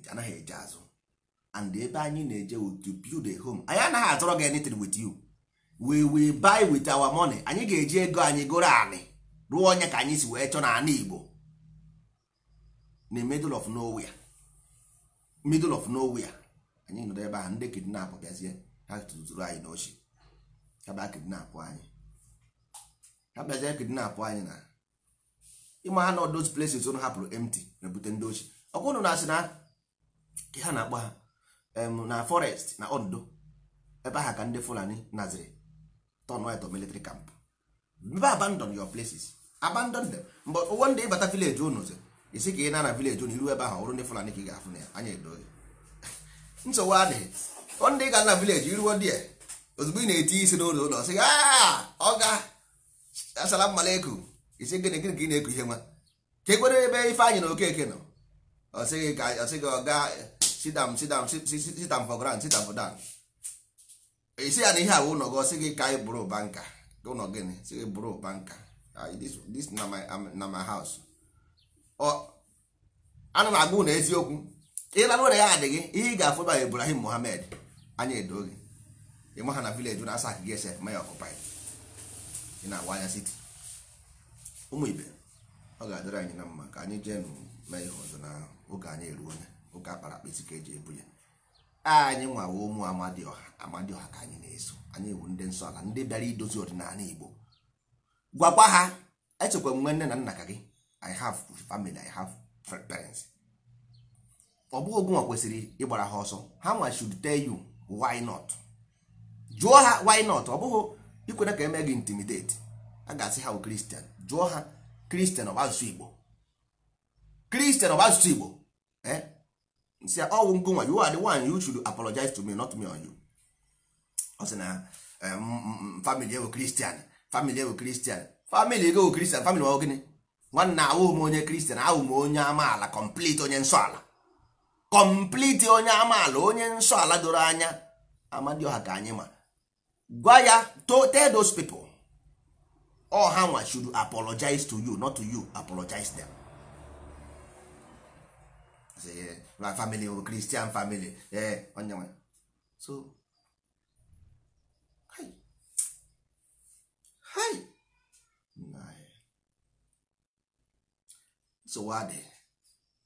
anaghị eje azụ and ebe anyị na-eje to build a home anyị anaghị azọrọ gị anything with you we will buy with our money anyị ga-eji ego anyị goro anị rụọ onye ka anyị si wee chọọ na ana igbo na middle of nowhere middle of nowhere anyị nọdụ ebe ahụ ndị kidnap bịazie ha tụtụrụ anyị n'ochi ha bịa kidnap anyị ha bịazie kidnap anyị na ịma ha nọ those places ụnụ hapụrụ empty na-ebute ndị ochi ọkwụnụ na-asị na ha na-akpọ ha na forest na ondo ebe ahụ ka ndị fulani naziri turn white or military camp mbe abandon your places abandon them but ụwọ ndị ịbata village ụnụ isi ka ị na na village ụnụ iru ebe ahụ ọrụ ndị fulani ka ị ga-afụ na ya anya edo nsogbu adịghị ndị ga na vileji iruo dị ozugbo ị na-eti isi n'ụlọ ụlọ sị ọ ga asala mmala eku isi gịnị gịnị ka ị na-eku ihe nwa ka ekwere ebe ife anyị na okeke nọ ọsịghị ka ọsịghị ọga sidam sidam sitam for grand sitam for dan isi ya na ihe awụ ụlọ gị ọsịghị ka anyị bụrụ ụba nka ụlọ gịnị sịghị bụrụ ụba nka ah, this na my house ana m agba ụlọ eziokwu ịlarụ ụra ya gị ihe ị ga-afụ ebe Ibrahim Mohammed anya edo gị ha na vileji na asa akịga ese ma ya ị na-agwa anya siti ụmụ ibe ọ ga-adịrị anyị na mma ka anyị jee mee ihe ọzọ na oge anyị eruo onye oge akpara akpa isi ka eji ebu ya anyị nwawa ụmụ Amadịọha Amadịọha ka anyị na-eso anyị ewu ndị nsọ ala ndị bịara idozi ọdịnala Igbo gwakwa ha echekwa nwe nne na nna ka gị I have family I have parents ọ bụghị ogunwa kwesịrị ịgbara ha ọsọ ha nwa should tell you why not jụọ ha why not ọ bụghị ikwere ka eme gị intimidate a ga-asị ha bụ oh, kristian jụọ ha kristian ọ bụ asụsụ igbo kristian ọ bụ asụsụ igbo eh nsị ọwụ ngonwa you are the one you should apologize to me not me on you ọ sị na eh, family ewu kristian family ewu kristian family ewu kristian family ọ gịnị nwanna awụ m onye kristian ahụ m onye amaala complete onye nsọ ala kọmpliti onye amaala onye nsọ ala doro anya amadioha ka anyị ma gwa ya to tell those people all ha should apologize to you not to you apologize them eh, my family or oh, christian family eh onye so hi hi eh. so what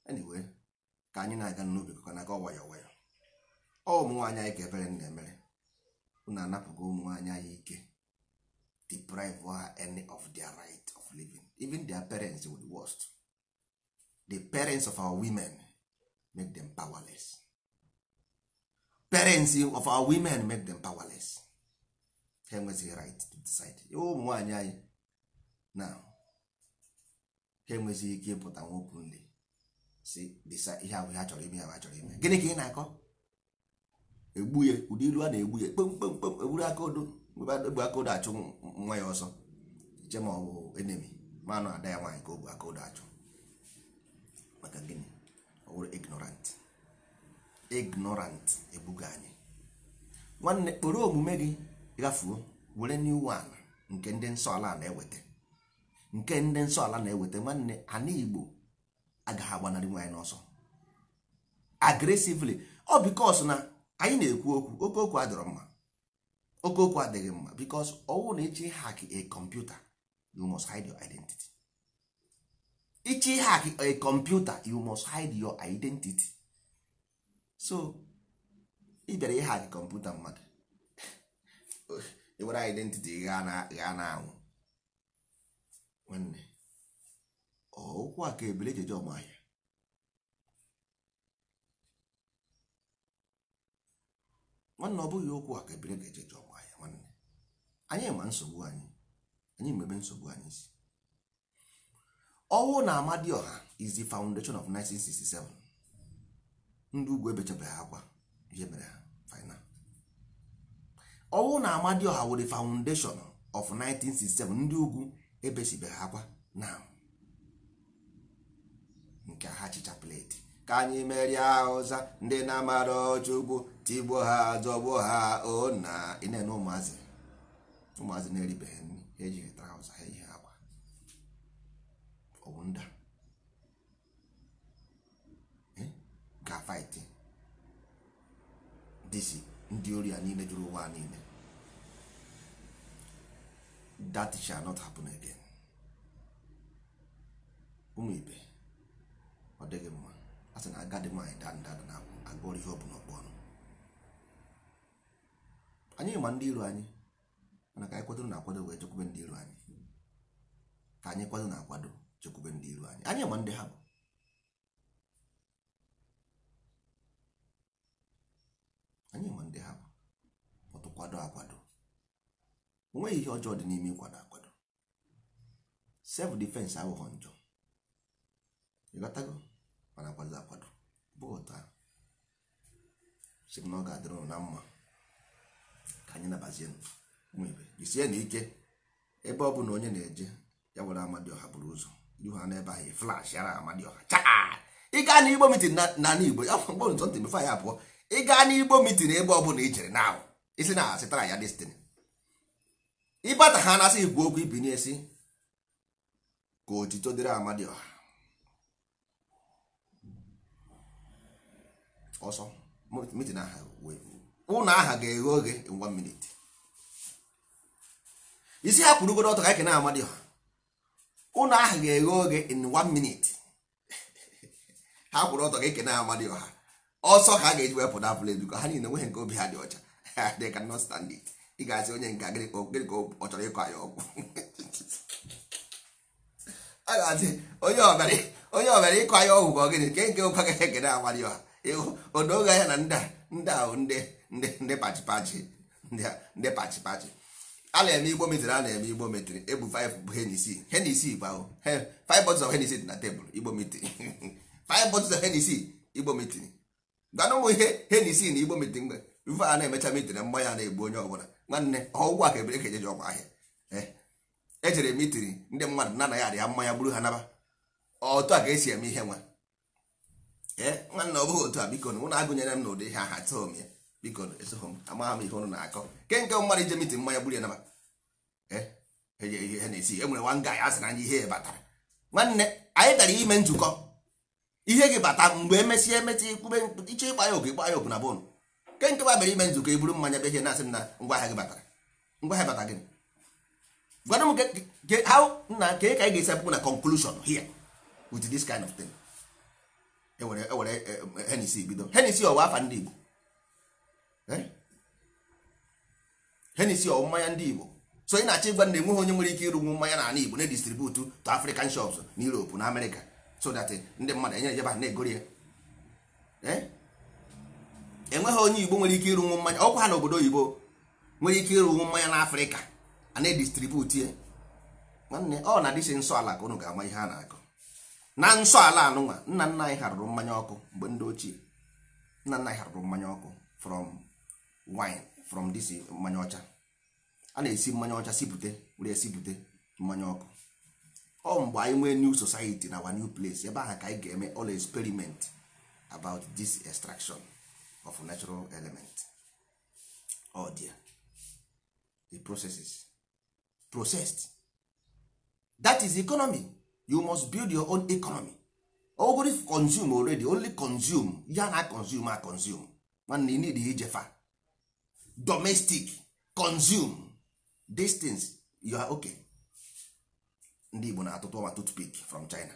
anyway ka anyị na-aga n'ubi ka na-aga ọwayọ ọwayọ ọ ụmụnwaanyị anyị ka ebere nna emere unu anapụgo ụmụnwaanyị anyị ike deprive ha any of their right of living even their parents were the worst the parents of our women make them powerless parents of our women make them powerless ha enwezighị right to decide ụmụnwaanyị anyị na ha ike ịpụta nwoke nle si dịsa ihe ahụ ihe chọrọ ime ya ma chọrọ ime gịnị ka ị na-akọ egbu ụdị ilu a na-egbu ya kpemkpemkpem egburu aka odo egbu aka odo achụ nwa ya ọsọ che ma ọ bụ enemi manụ ada ya nwaanyị ka o bu aka odo achụ maka gịnị ọ bụrụ ignorant ignorant ebuga anyị nwanne kpọrọ omume gị gafuo were new one nke ndị nsọ ala na-eweta nke ndị nsọ ala na-eweta nwanne anigbo. agaghị agbanarị nwe n'ọsọ agresively ọ bikos na anyị na-ekwu okwu okookwu adịrọ mma okookwu adịghị mma bikos ọwụ na ịchị hak a kọmputa you must hide your identity ịchị hak a kọmputa you must hide your identity so ị bịara ịhak kọmputa mmadụ ewere identity gha na anwụ nwanne okwu a ka ebele jeje ahịa nwanne ọ bụghị okwu a ka ebele ga-ejeje ọmahịa nwanne anyị ma nsogbu anyị anyị mebe nsogbu anyị si Ọwụ na dị ọha izi foundation of 1967 ndị ugwu ebechabeghị akwa ihe mere ha final ọwụ na ọha were foundation of 1967 ndị ugwu ebesibeghị akwa na nke ha chicha pleti ka anyị merie ụza ndị na-amara ọchụgbu tigbo ha zọgbo ha ona ịnene ụmụazị ụmụazị na-eribeghị nri ejighị traụza ha ejighị akwa owunda ga fight si ndị ori a niile jụrụ ụwa niile that shall not happen again ụmụ ibe ọ dịghị mma a sị na agadi nwaanyị daa nda na akwụ agụọrọ ihe ọ bụla ọkpụ ọnụ anyị ma ndị iro anyị mana ka anyị kwadoro na akwado wee chekwube ndị iro anyị ka anyị kwado na akwado chekwube ndị iro anyị anyị ma ndị ha bụ anyị ma ndị ha bụ ọtụ kwado akwado onweghị ihe ọjọọ dị n'ime ịkwado akwado self defense aghụghọ njọ ịghọtago mana akwado akwado bụ ụta sị m na ọ ga-adịrị na mma ka anyị nabazie nwebe jisie na ike ebe ọ bụla onye na-eje ya were Amadioha buru ụzọ ihu ha ebe ahụ e flash yara Amadioha chaa ịgaa na igbo mitin na igbo ya mgbe nzọ ntị bifo ya pụọ ịgaa na igbo mitin ebe ọ bụla i na ahụ isi na asịtara ya destiny ịbata ha na-asị ikwu okwu ibinye esi ka otito dịrị Amadioha ọsọ mitin aha ụnụ aha ga-eghe oge in minute isi ha kwurugoro ọtọ ka anyị kena amadi ha ụnụ aha ga-eghe oge in one minute ha kwụrụ ọtọ ka ekene amadi ọha ọsọ ka a ga-eji wepụ na apụl edu ka ha niile nweghị nke obi ha dị ọcha they cannot stand it ị ga-asị onye nke gịnị ka ọ chọrọ ịkọ anyị ọgwụ a ga-asị onye ọbịara ịkọ anyị ọgwụ ka ọ gịnị nke nke ụka ga ekene amadi ọha odoge ahịa na ndị a ndị ahụ ndị ndị ndị pachipachi ndị pachipachi a na-eme igbo metiri a na-eme igbo metiri ebu 5 bụ henisi henisi bụ ahụ 5 bottles of henisi dị na tebụl igbo metiri 5 bottles of henisi igbo metiri gwana ụmụ ihe henisi na igbo metiri mgbe rufe a na-emecha metiri mmanya na-egbu onye ọbụla nwanne ọgwụ a ka ebere ka e ejeji ọgwụ ahịa ejere metiri ndị mmadụ na anaghị arịa mmanya gburu ha naba otu a ka esi eme ihe nwa nwanne ọ bụghị otu a biko na ụnụ agụnyere m na ụdị ha ha tụọ ya biko esoghị m amagha m ihe ụnụ na-akọ ke nke mmadụ ije mitin mmanya gburu ya naba ihe e, e, e, na-esi e nwere nwa nga ya sịra anya ihe batara nwanne anyị gara ime nzukọ ihe gị bata mgbe emesịa emetị ikwube iche ịgba ya oge ịgba ya ogu na bụnụ ke nke babere ime nzukọ i mmanya mmanya ihe na-asị m na ngwa ahịa gị batara ngwa ahịa bata gị. gwana m nna ka ị ka anyị ga-esi apụpụ na conclusion here with this kind of thing enwere enwere e, e, henisi bido henisi ọwa afa ndị Igbo eh? henisi ọwụ mmanya ndị Igbo so ị na-achọ ịgwa na enweghị onye nwere ike ịrụnwu mmanya na n'ala Igbo na-edistributu to African shops na Europe na America so that ndị mmadụ enyere jeba na-egori ya eh? enweghị onye Igbo nwere ike ịrụnwu mmanya ọkwa ha na obodo Igbo nwere ike ịrụnwu mmanya na Afrịka a na-edistributu ya nwanne ọ na-adịsị nsọ ala ka ụnụ ga-ama ihe a na-akọ na nsọ ala anụnwa nna nna anyị harụrụ mmanya ọkụ mgbe ndị ochie nna nna anyị harụrụ mmanya ọkụ from wine from dis mmanya ọcha a na-esi mmanya ọcha sipute were esipụte mmanya ọkụ ọ mgbe anyị nwee new society na our new place ebe ahụ ka anyị ga-eme all experiment about this extraction of natural element oh dear the processes processed that is economy you must build your own economy ogori consume already only consume ya na consume a consume nwanne you need ijefa domestic consume distance you are okay ndị Igbo na-atụtụ ọma toothpick from China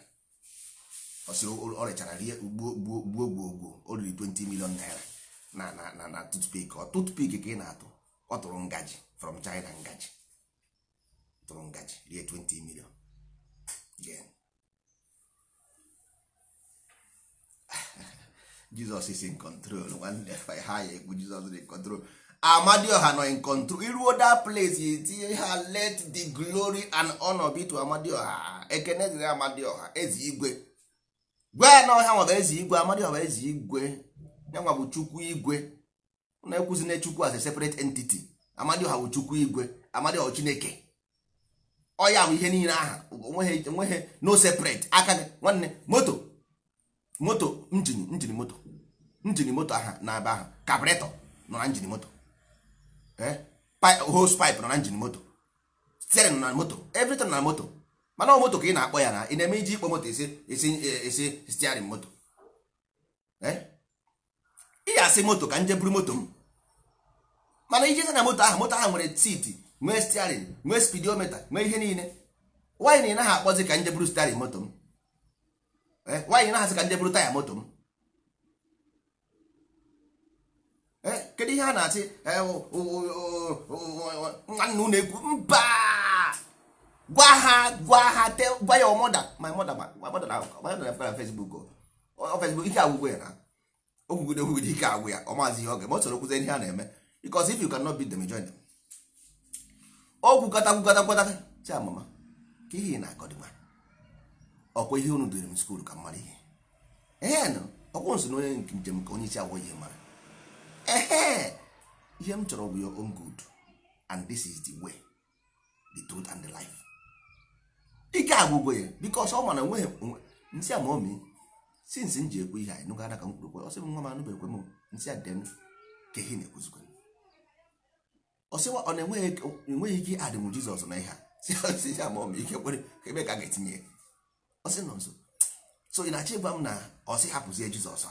osi ọ rechara rie gbuo gbuo o riri 20 million naira na na na na toothpick ọ toothpick ka ị na-atụ ọ tụrụ ngaji from China ngaji tụrụ ngaji rie 20 million jizọs is in control nwanne ha ya ekwu jizọs in control amadioha nọ in control iruo that place itinye ha let the glory and honor be to amadioha ekene dịrị amadioha ezi igwe gwa ya na ọha nwaba ezi igwe amadioha ezi igwe yanwa bụ chukwu igwe na-ekwuzi na chukwu as a separate entity amadioha bụ chukwu igwe amadioha chineke ọya bụ ihe niile aha onweghị onweghị no separate aka nwanne moto moto njini njini moto njini moto aha na aba aha kabretọ nọ na njini moto eh? hose pipe nọ na njini moto steering nọ na moto everything na moto mana ọ moto ka ị na-akpọ ya na ị na-eme iji ịkpọ moto esi esi esi steering moto eh? ị ga-asị moto ka nje buru moto m mana ijezi na moto aha, moto aha nwere siti nwee stiarin nwee spidometa nwee ihe niile nwaanyị na ị naghị akpọzi ka nje bụrụ stiarin moto m eh, na naghasị ka nje bụrụ taya moto m eh, kedu ihe a na-asị eh, nwanne ụlọ egwu mba gwa ha gwa ha gwa ya ọmọda my mother my mother na Facebook Facebook ike agwụgwọ ya na ogwugwu okwugide okwugide ike agwụ ya ọ maazị ihe ọ oge eme ọ soro kwụzie ihe a na-eme because if you cannot beat them join them ọ gwụgata gwụgata gwụgata si amama ka ihe na akọdịma ọkwa ihe unu dịrị m skuul ka mara ihe ee nụ ọkwụ nso na nke njem ka onye isi agwọ ihe mara ee ihe m chọrọ bụ ya own good and this is the way the truth and the life ike agwụgo ya because ọ mana nweghị nsị ama omi since m ji ekwu ihe anyị nụgara ka m kwuru ọ sị m nwa m anụbeghị ekwe m nsị a dị ka ihe na-ekwuzikwa ọsịwa ọ na-enweghị ike adịmụ jizọs na ihe a ma ọ ma ike kwere ebe ka a ga-etinye ọsị nọ nso so ị na-achọ ịgwa m na ọsị hapụzie jizọs a?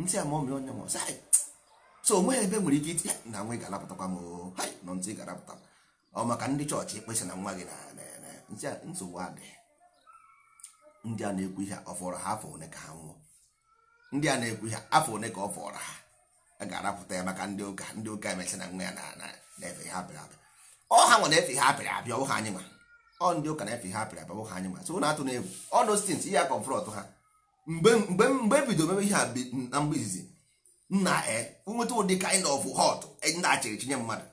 ntị a ma ọ ma onye ma ọsị so onweghị ebe nwere ike itinye na nwa ị ga-alapụtakwa m nọ ntị ị ga-alapụta ọ maka ndị chọọchị ekpesa na nwa gị na nsogbu adịghị ndị a na-ekwu ihe ọ fọrọ ha afọ one ka ha nwụọ ndị a na-ekwu ihe afọ one ka ọ fọrọ ha a ga-arapụta ya maka ndị ụka ndị ụka emesị na nwa ya na-efe ha apịrị apịa ọ ha nwe na-efe ha apịrị apịa ọbụ ha anyị nwa ọ ndị ụka na-efe ha apịrị apịa ọbụ ha anyị nwa so na atụ na egwu ọ dostins ihe akọmfrọt ha mgbe mgbe mgbe bido mebe ihe na mgbe izizi nna e nweta ụdị kind of hot e, na-achịrị chinye mmadụ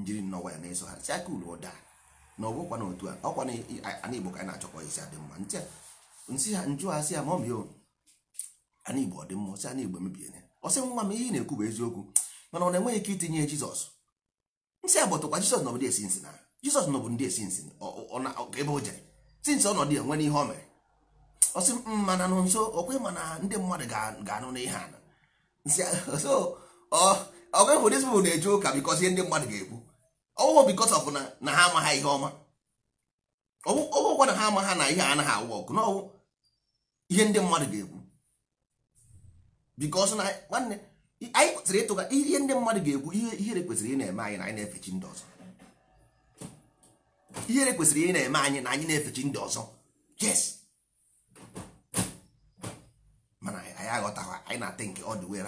njiri nnọwa ya na-eso ha si aka uru ụda na ọ bụkwa na otu a ọkwa na igbo ka anyị na-achọkọ isi adị mma nsị ha njụ ha si ya ma oh, ọ mio ana igbo ọ dị mma si ana igbo emebiene ọsị nwa m ihe ị na-ekwu bụ eziokwu mana ọ na-enweghị ike itinye jizọs nsị agbọtụkwa jizọs nọbụ ndị esi nsị na jizọs nọbụ ndị esi nsị ebe o jere sinsi ọnọdụ ya nwee ihe o mere ọsị mana nụ nso okwe mana ndị mmadụ ga-anụ na ihe ana ọgwe hụ dis bụ na-eje ụka bikọs ihe ndị mmadụ ga-ekwu ọwụwụ bikọs ọbụ na ha amaghị ihe ọma ọwụkwa na ha amagha na ihe anaghị awụ ọkụ na ihe ndị mmadụ ga-ekwu because na nwanne anyị kwesịrị ịtụga ihe ndị mmadụ ga-ekwu ihe ihere kwesịrị ị na-eme anyị na anyị na efechi ndị ọzọ ihere kwesịrị ị na-eme anyị na anyị na efechi ndị ọzọ yes mana anyị aghọtaghị anyị na-ata nke ọ dị wee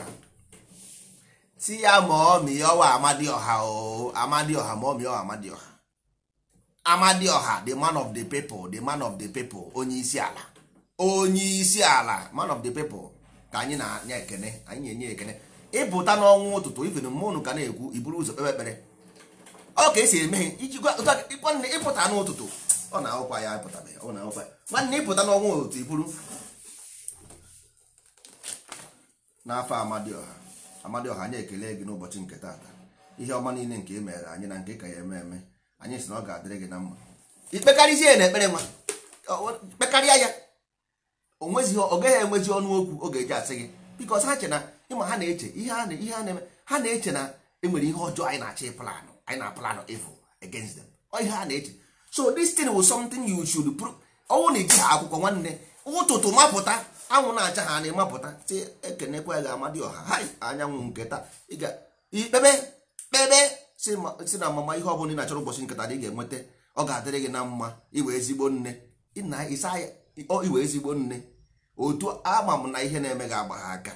si ya ma ọmịọwa amadịọha o amadịọha ma ọmịọwa amadịọha amadịọha the man of the people the man of the people onye isi ala onye isi ala man of the people ka anyị na anya ekene anyị na-enye ekene ịpụta n'ọnwụ ụtụtụ iven mụnụ ka na-ekwu iburu ụzọ kpebe ekpere ọ ka esi eme iji nwanne ịpụta n'ụtụtụ ọ na-ahụkwa ya ọ na-awụkwa nwanne ịpụta n'ọnwụ ụtụtụ iburu n'afọ amadioha amadioha anyị ekele gị n'ụbọchị nke taata ihe ọma niile nke e anyị na nke ka ya eme eme anyị si na ọ ga-adịrị gị na mma ikpekarịzie ya na ekpere nwa kpekarịa ya ọ gaghị enwezi ọnụ okwu oge eji asị gị bikos ha chena ịma ha na-eche ihe ha na-eme ha na-eche na enwere ihe ọjọọ anyị na-achọ ịplanụ anyị na-aplanụ evil against them ihe na-eche so this thing was something you should prove ọnwụ na iji ha akwụkwọ nwanne ụtụtụ mapụta anwụ na-acha ha na-emapụta si ekenekwa gị ga-amadị ọha hai anyanwụ nketa ịga ikpebe kpebe si na mama ihe ọbụla ị na-achọrọ ụbọchị nketa dị ga-enweta ọ ga-adịrị gị na mma iwe ezigbo nne iwe ezigbo nne otu ama m na ihe na-eme gị agba ha aka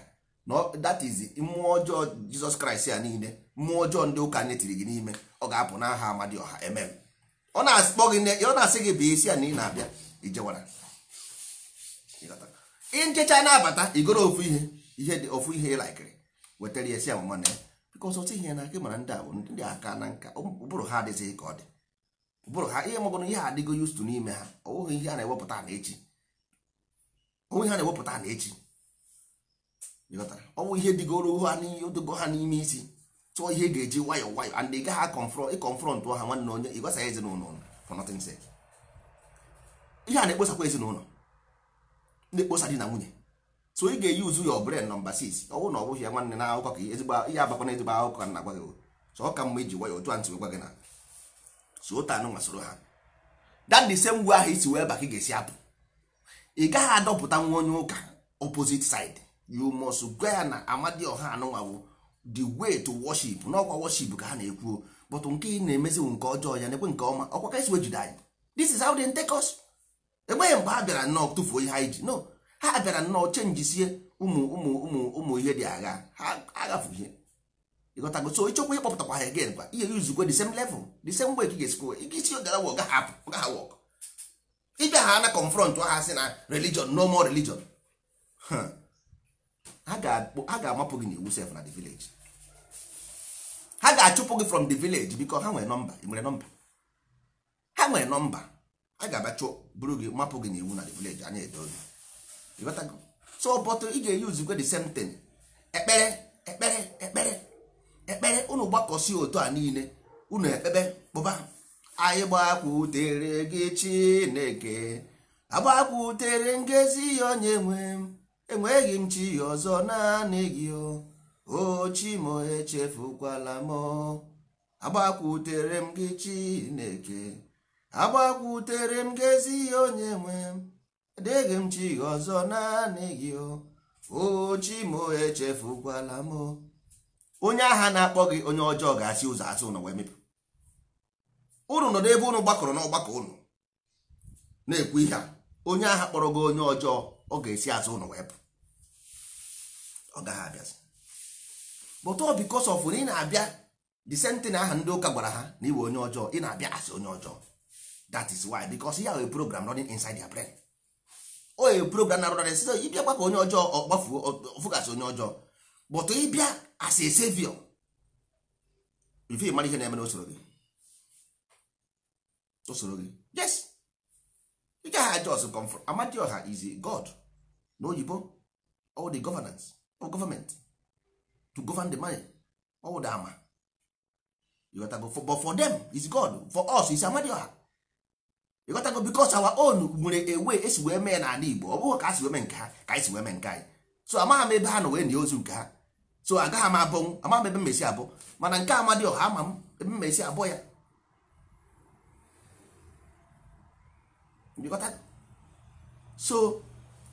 that is mmụọ ọjọọ jizọs kraịst a niile mmụọ ọjọọ ndị ụka netiri gị n'ime ọ ga-apụ n'aha aha ọha emem ọ na-akpọ gị ọ na-asị gị bụ isi a na ị na-abịa ijewara nchecha na-abata igoro ofu ihe ihe dị ofu ihe ịlaikiri wetara ya si amụma na ya bikọs otu ihe na aka mara ndị abụ ndị aka na nka um, ụbụrụ ha adịghị ka ọ dị ụbụrụ ha ihe maọbụ na ihe adịgo yustu n'ime ha ọ bụghị ihe a na-ewepụta na echi onwe ihe na-ewepụta na echi ọ bụ ihe dịgoro ha odogo ha n'ime isi tụọ ihe ga-eji nwayọ nwayọ and ị gaghị akọnfrọntụ ha nwanne onye ị gwasaghị ezinụlọ for nothing sake ihe a na-ekposakwa ezinụlọ na-ekposa di na nwunye so ị ga-eyi uzu your brain nọmba sis ọ bụrụ na ọ bụghị ya nwanne na akụkọ ka ihe abakwa na ezigbo akụkọ na agwa gị so ọ ka mma iji nwayọ otu a ntị gwa gị na so otu anụ nwa ha that the same ahụ isi wee ba ị ga-esi apụ ị gaghị adọpụta nwa onye ụka opposite side you must gwa ya na amadioha anụnwawo the way to worship n'ọkwa worship ka ha na ekwuo but nke ị na-emeziwu nke ọjọọ ya na-ekwe nke ọma ọkwa ka esi wejide anyị this is how they take us egbeghị mgbe ha bịara nnọọ tụfuo ihe anyị ji no ha bịara nnọọ chenjisie ụmụ ụmụ ụmụ ụmụ ihe dị agha ha agafu ihe ịghọtago so ịchọkwa ịkpọpụtakwa ha again kwa ihe yuzukwe the same level the same way ka ị ga-esikwa ike isi ogara wa ọgaghị apụ ọgaghị wọk ịbịa ha na confront ha si na religion no more religion ha ga-amapụ gị n'iwu iwu sef na the village ha ga-achụpụ gị from the village biko ha nwere nọmba nwere nọmba ha nwere nọmba a ga-abịa chụọ buru gị mapụ gị n'iwu na the village anya edo gị so but ị ga-eyuzikwe the same thing ekpere ekpere ekpere ekpere unu gbakọsi otu a niile unu ekpebe kpụba anyị gbakwutere gị chineke agbakwutere ngezi ya onye nwe m enweghị m chi ọzọ naanị gị o chi m echefukwala m agbakwutere m gị chineke agbakwutere m ngezi ya onye nwe m adịghị m chi ọzọ naanị gị o chi m echefukwala m onye agha na-akpọ gị onye ọjọọ ga-asị ụzọ asụ na wee mepụ unu nọ n'ebe unu gbakọrọ n'ọgbakọ unu na-ekwu ihe a onye agha kpọrọ gị onye ọjọọ ọ ga-esi azụ ụnụ wee pụ ọ gaghị abịazi but ọ because of na ị na-abịa the sentin aha ndị ụka gwara ha na iwe onye ọjọọ ị na-abịa asị onye ọjọọ that is why because ya a program running inside ya brain o ye program na running sizo ịbịa gbakọ onye ọjọọ ọ gbafuo ọfụgasị onye ọjọọ but ịbịa as a ife mara ihe na-eme n'usoro gị o soro gị yes ị gaghị ajọs comfort amadioha is god n'oyibo all the governance of government to govern the money all the ama you gotta go for, but for them is god for us is amadioha you gotta go because our own nwere ewe esi wee mee n'ala igbo ọ bụghị ka asi wee mee nke ha ka anyị si wee mee nke anyị so amaghị m ebe ha nọ wee nye ozu nke ha so agaghị m abụnwụ amaghị m ebe mmesi abụ mana nke amadioha ama m ebe mmesi abụ ya so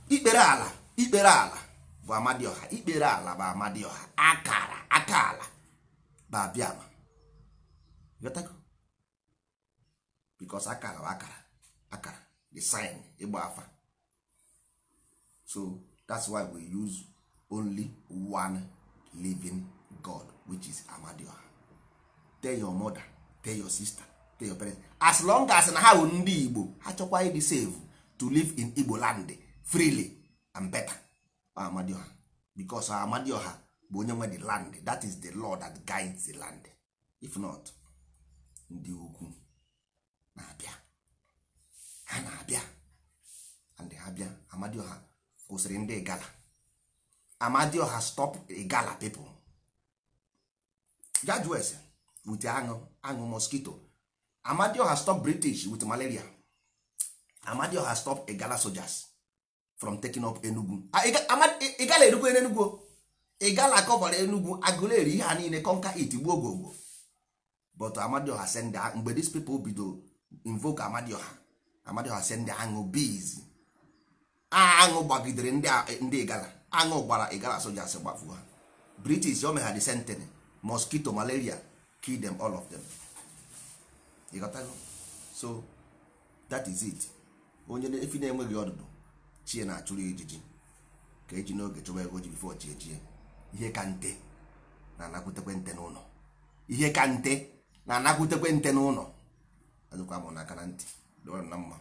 ikpere ala ikpere ala bụ amadioha ikpere ala bụ amadioha akara aka ala bụ abịama bikos akara bụ akara akara the sign ịgba afa so that's why we use only one living god which is amadioha tell your mother tell your sister as long as na ha bụ ndị igbo ha chọkwa ịdị save to live in igbo land freely and better amadioha bicos amadioha bụ onye nwe the land that is the law that guides the land if not ndị ukwu na-abịa ha na-abịa and ha bịa amadioha kwụsịrị ndị gala amadioha stop gala people judge wes wute aṅụ aṅụ mosquito amadio has stop british with malaria amadio has stop igala soldiers from taking up enugu ah, igala erukwu enugu igala kọbara enugu agụleri ihe ha niile conquer it gbuo but amadio ha send ha mgbe these people bido invoke amadio ha amadio ha send aṅụ bees aṅụ gbagidere ndị igala aṅụ gbara igala soldiers gbafuo ha british o meha the sentiny mosquito malaria kill them all of them. ịghọtago so that is it onye efi na-enweghị ọdụdụ chie na-achụrụ ijiji ka eji n'oge chọba ego ji bifo chi ejie ihe ka nte na-anakwutekwe nte n'ụlọ ihe ka nte na-anakwutekwe nte n'ụlọ azụkwa m n'aka na ntị dịwara na mma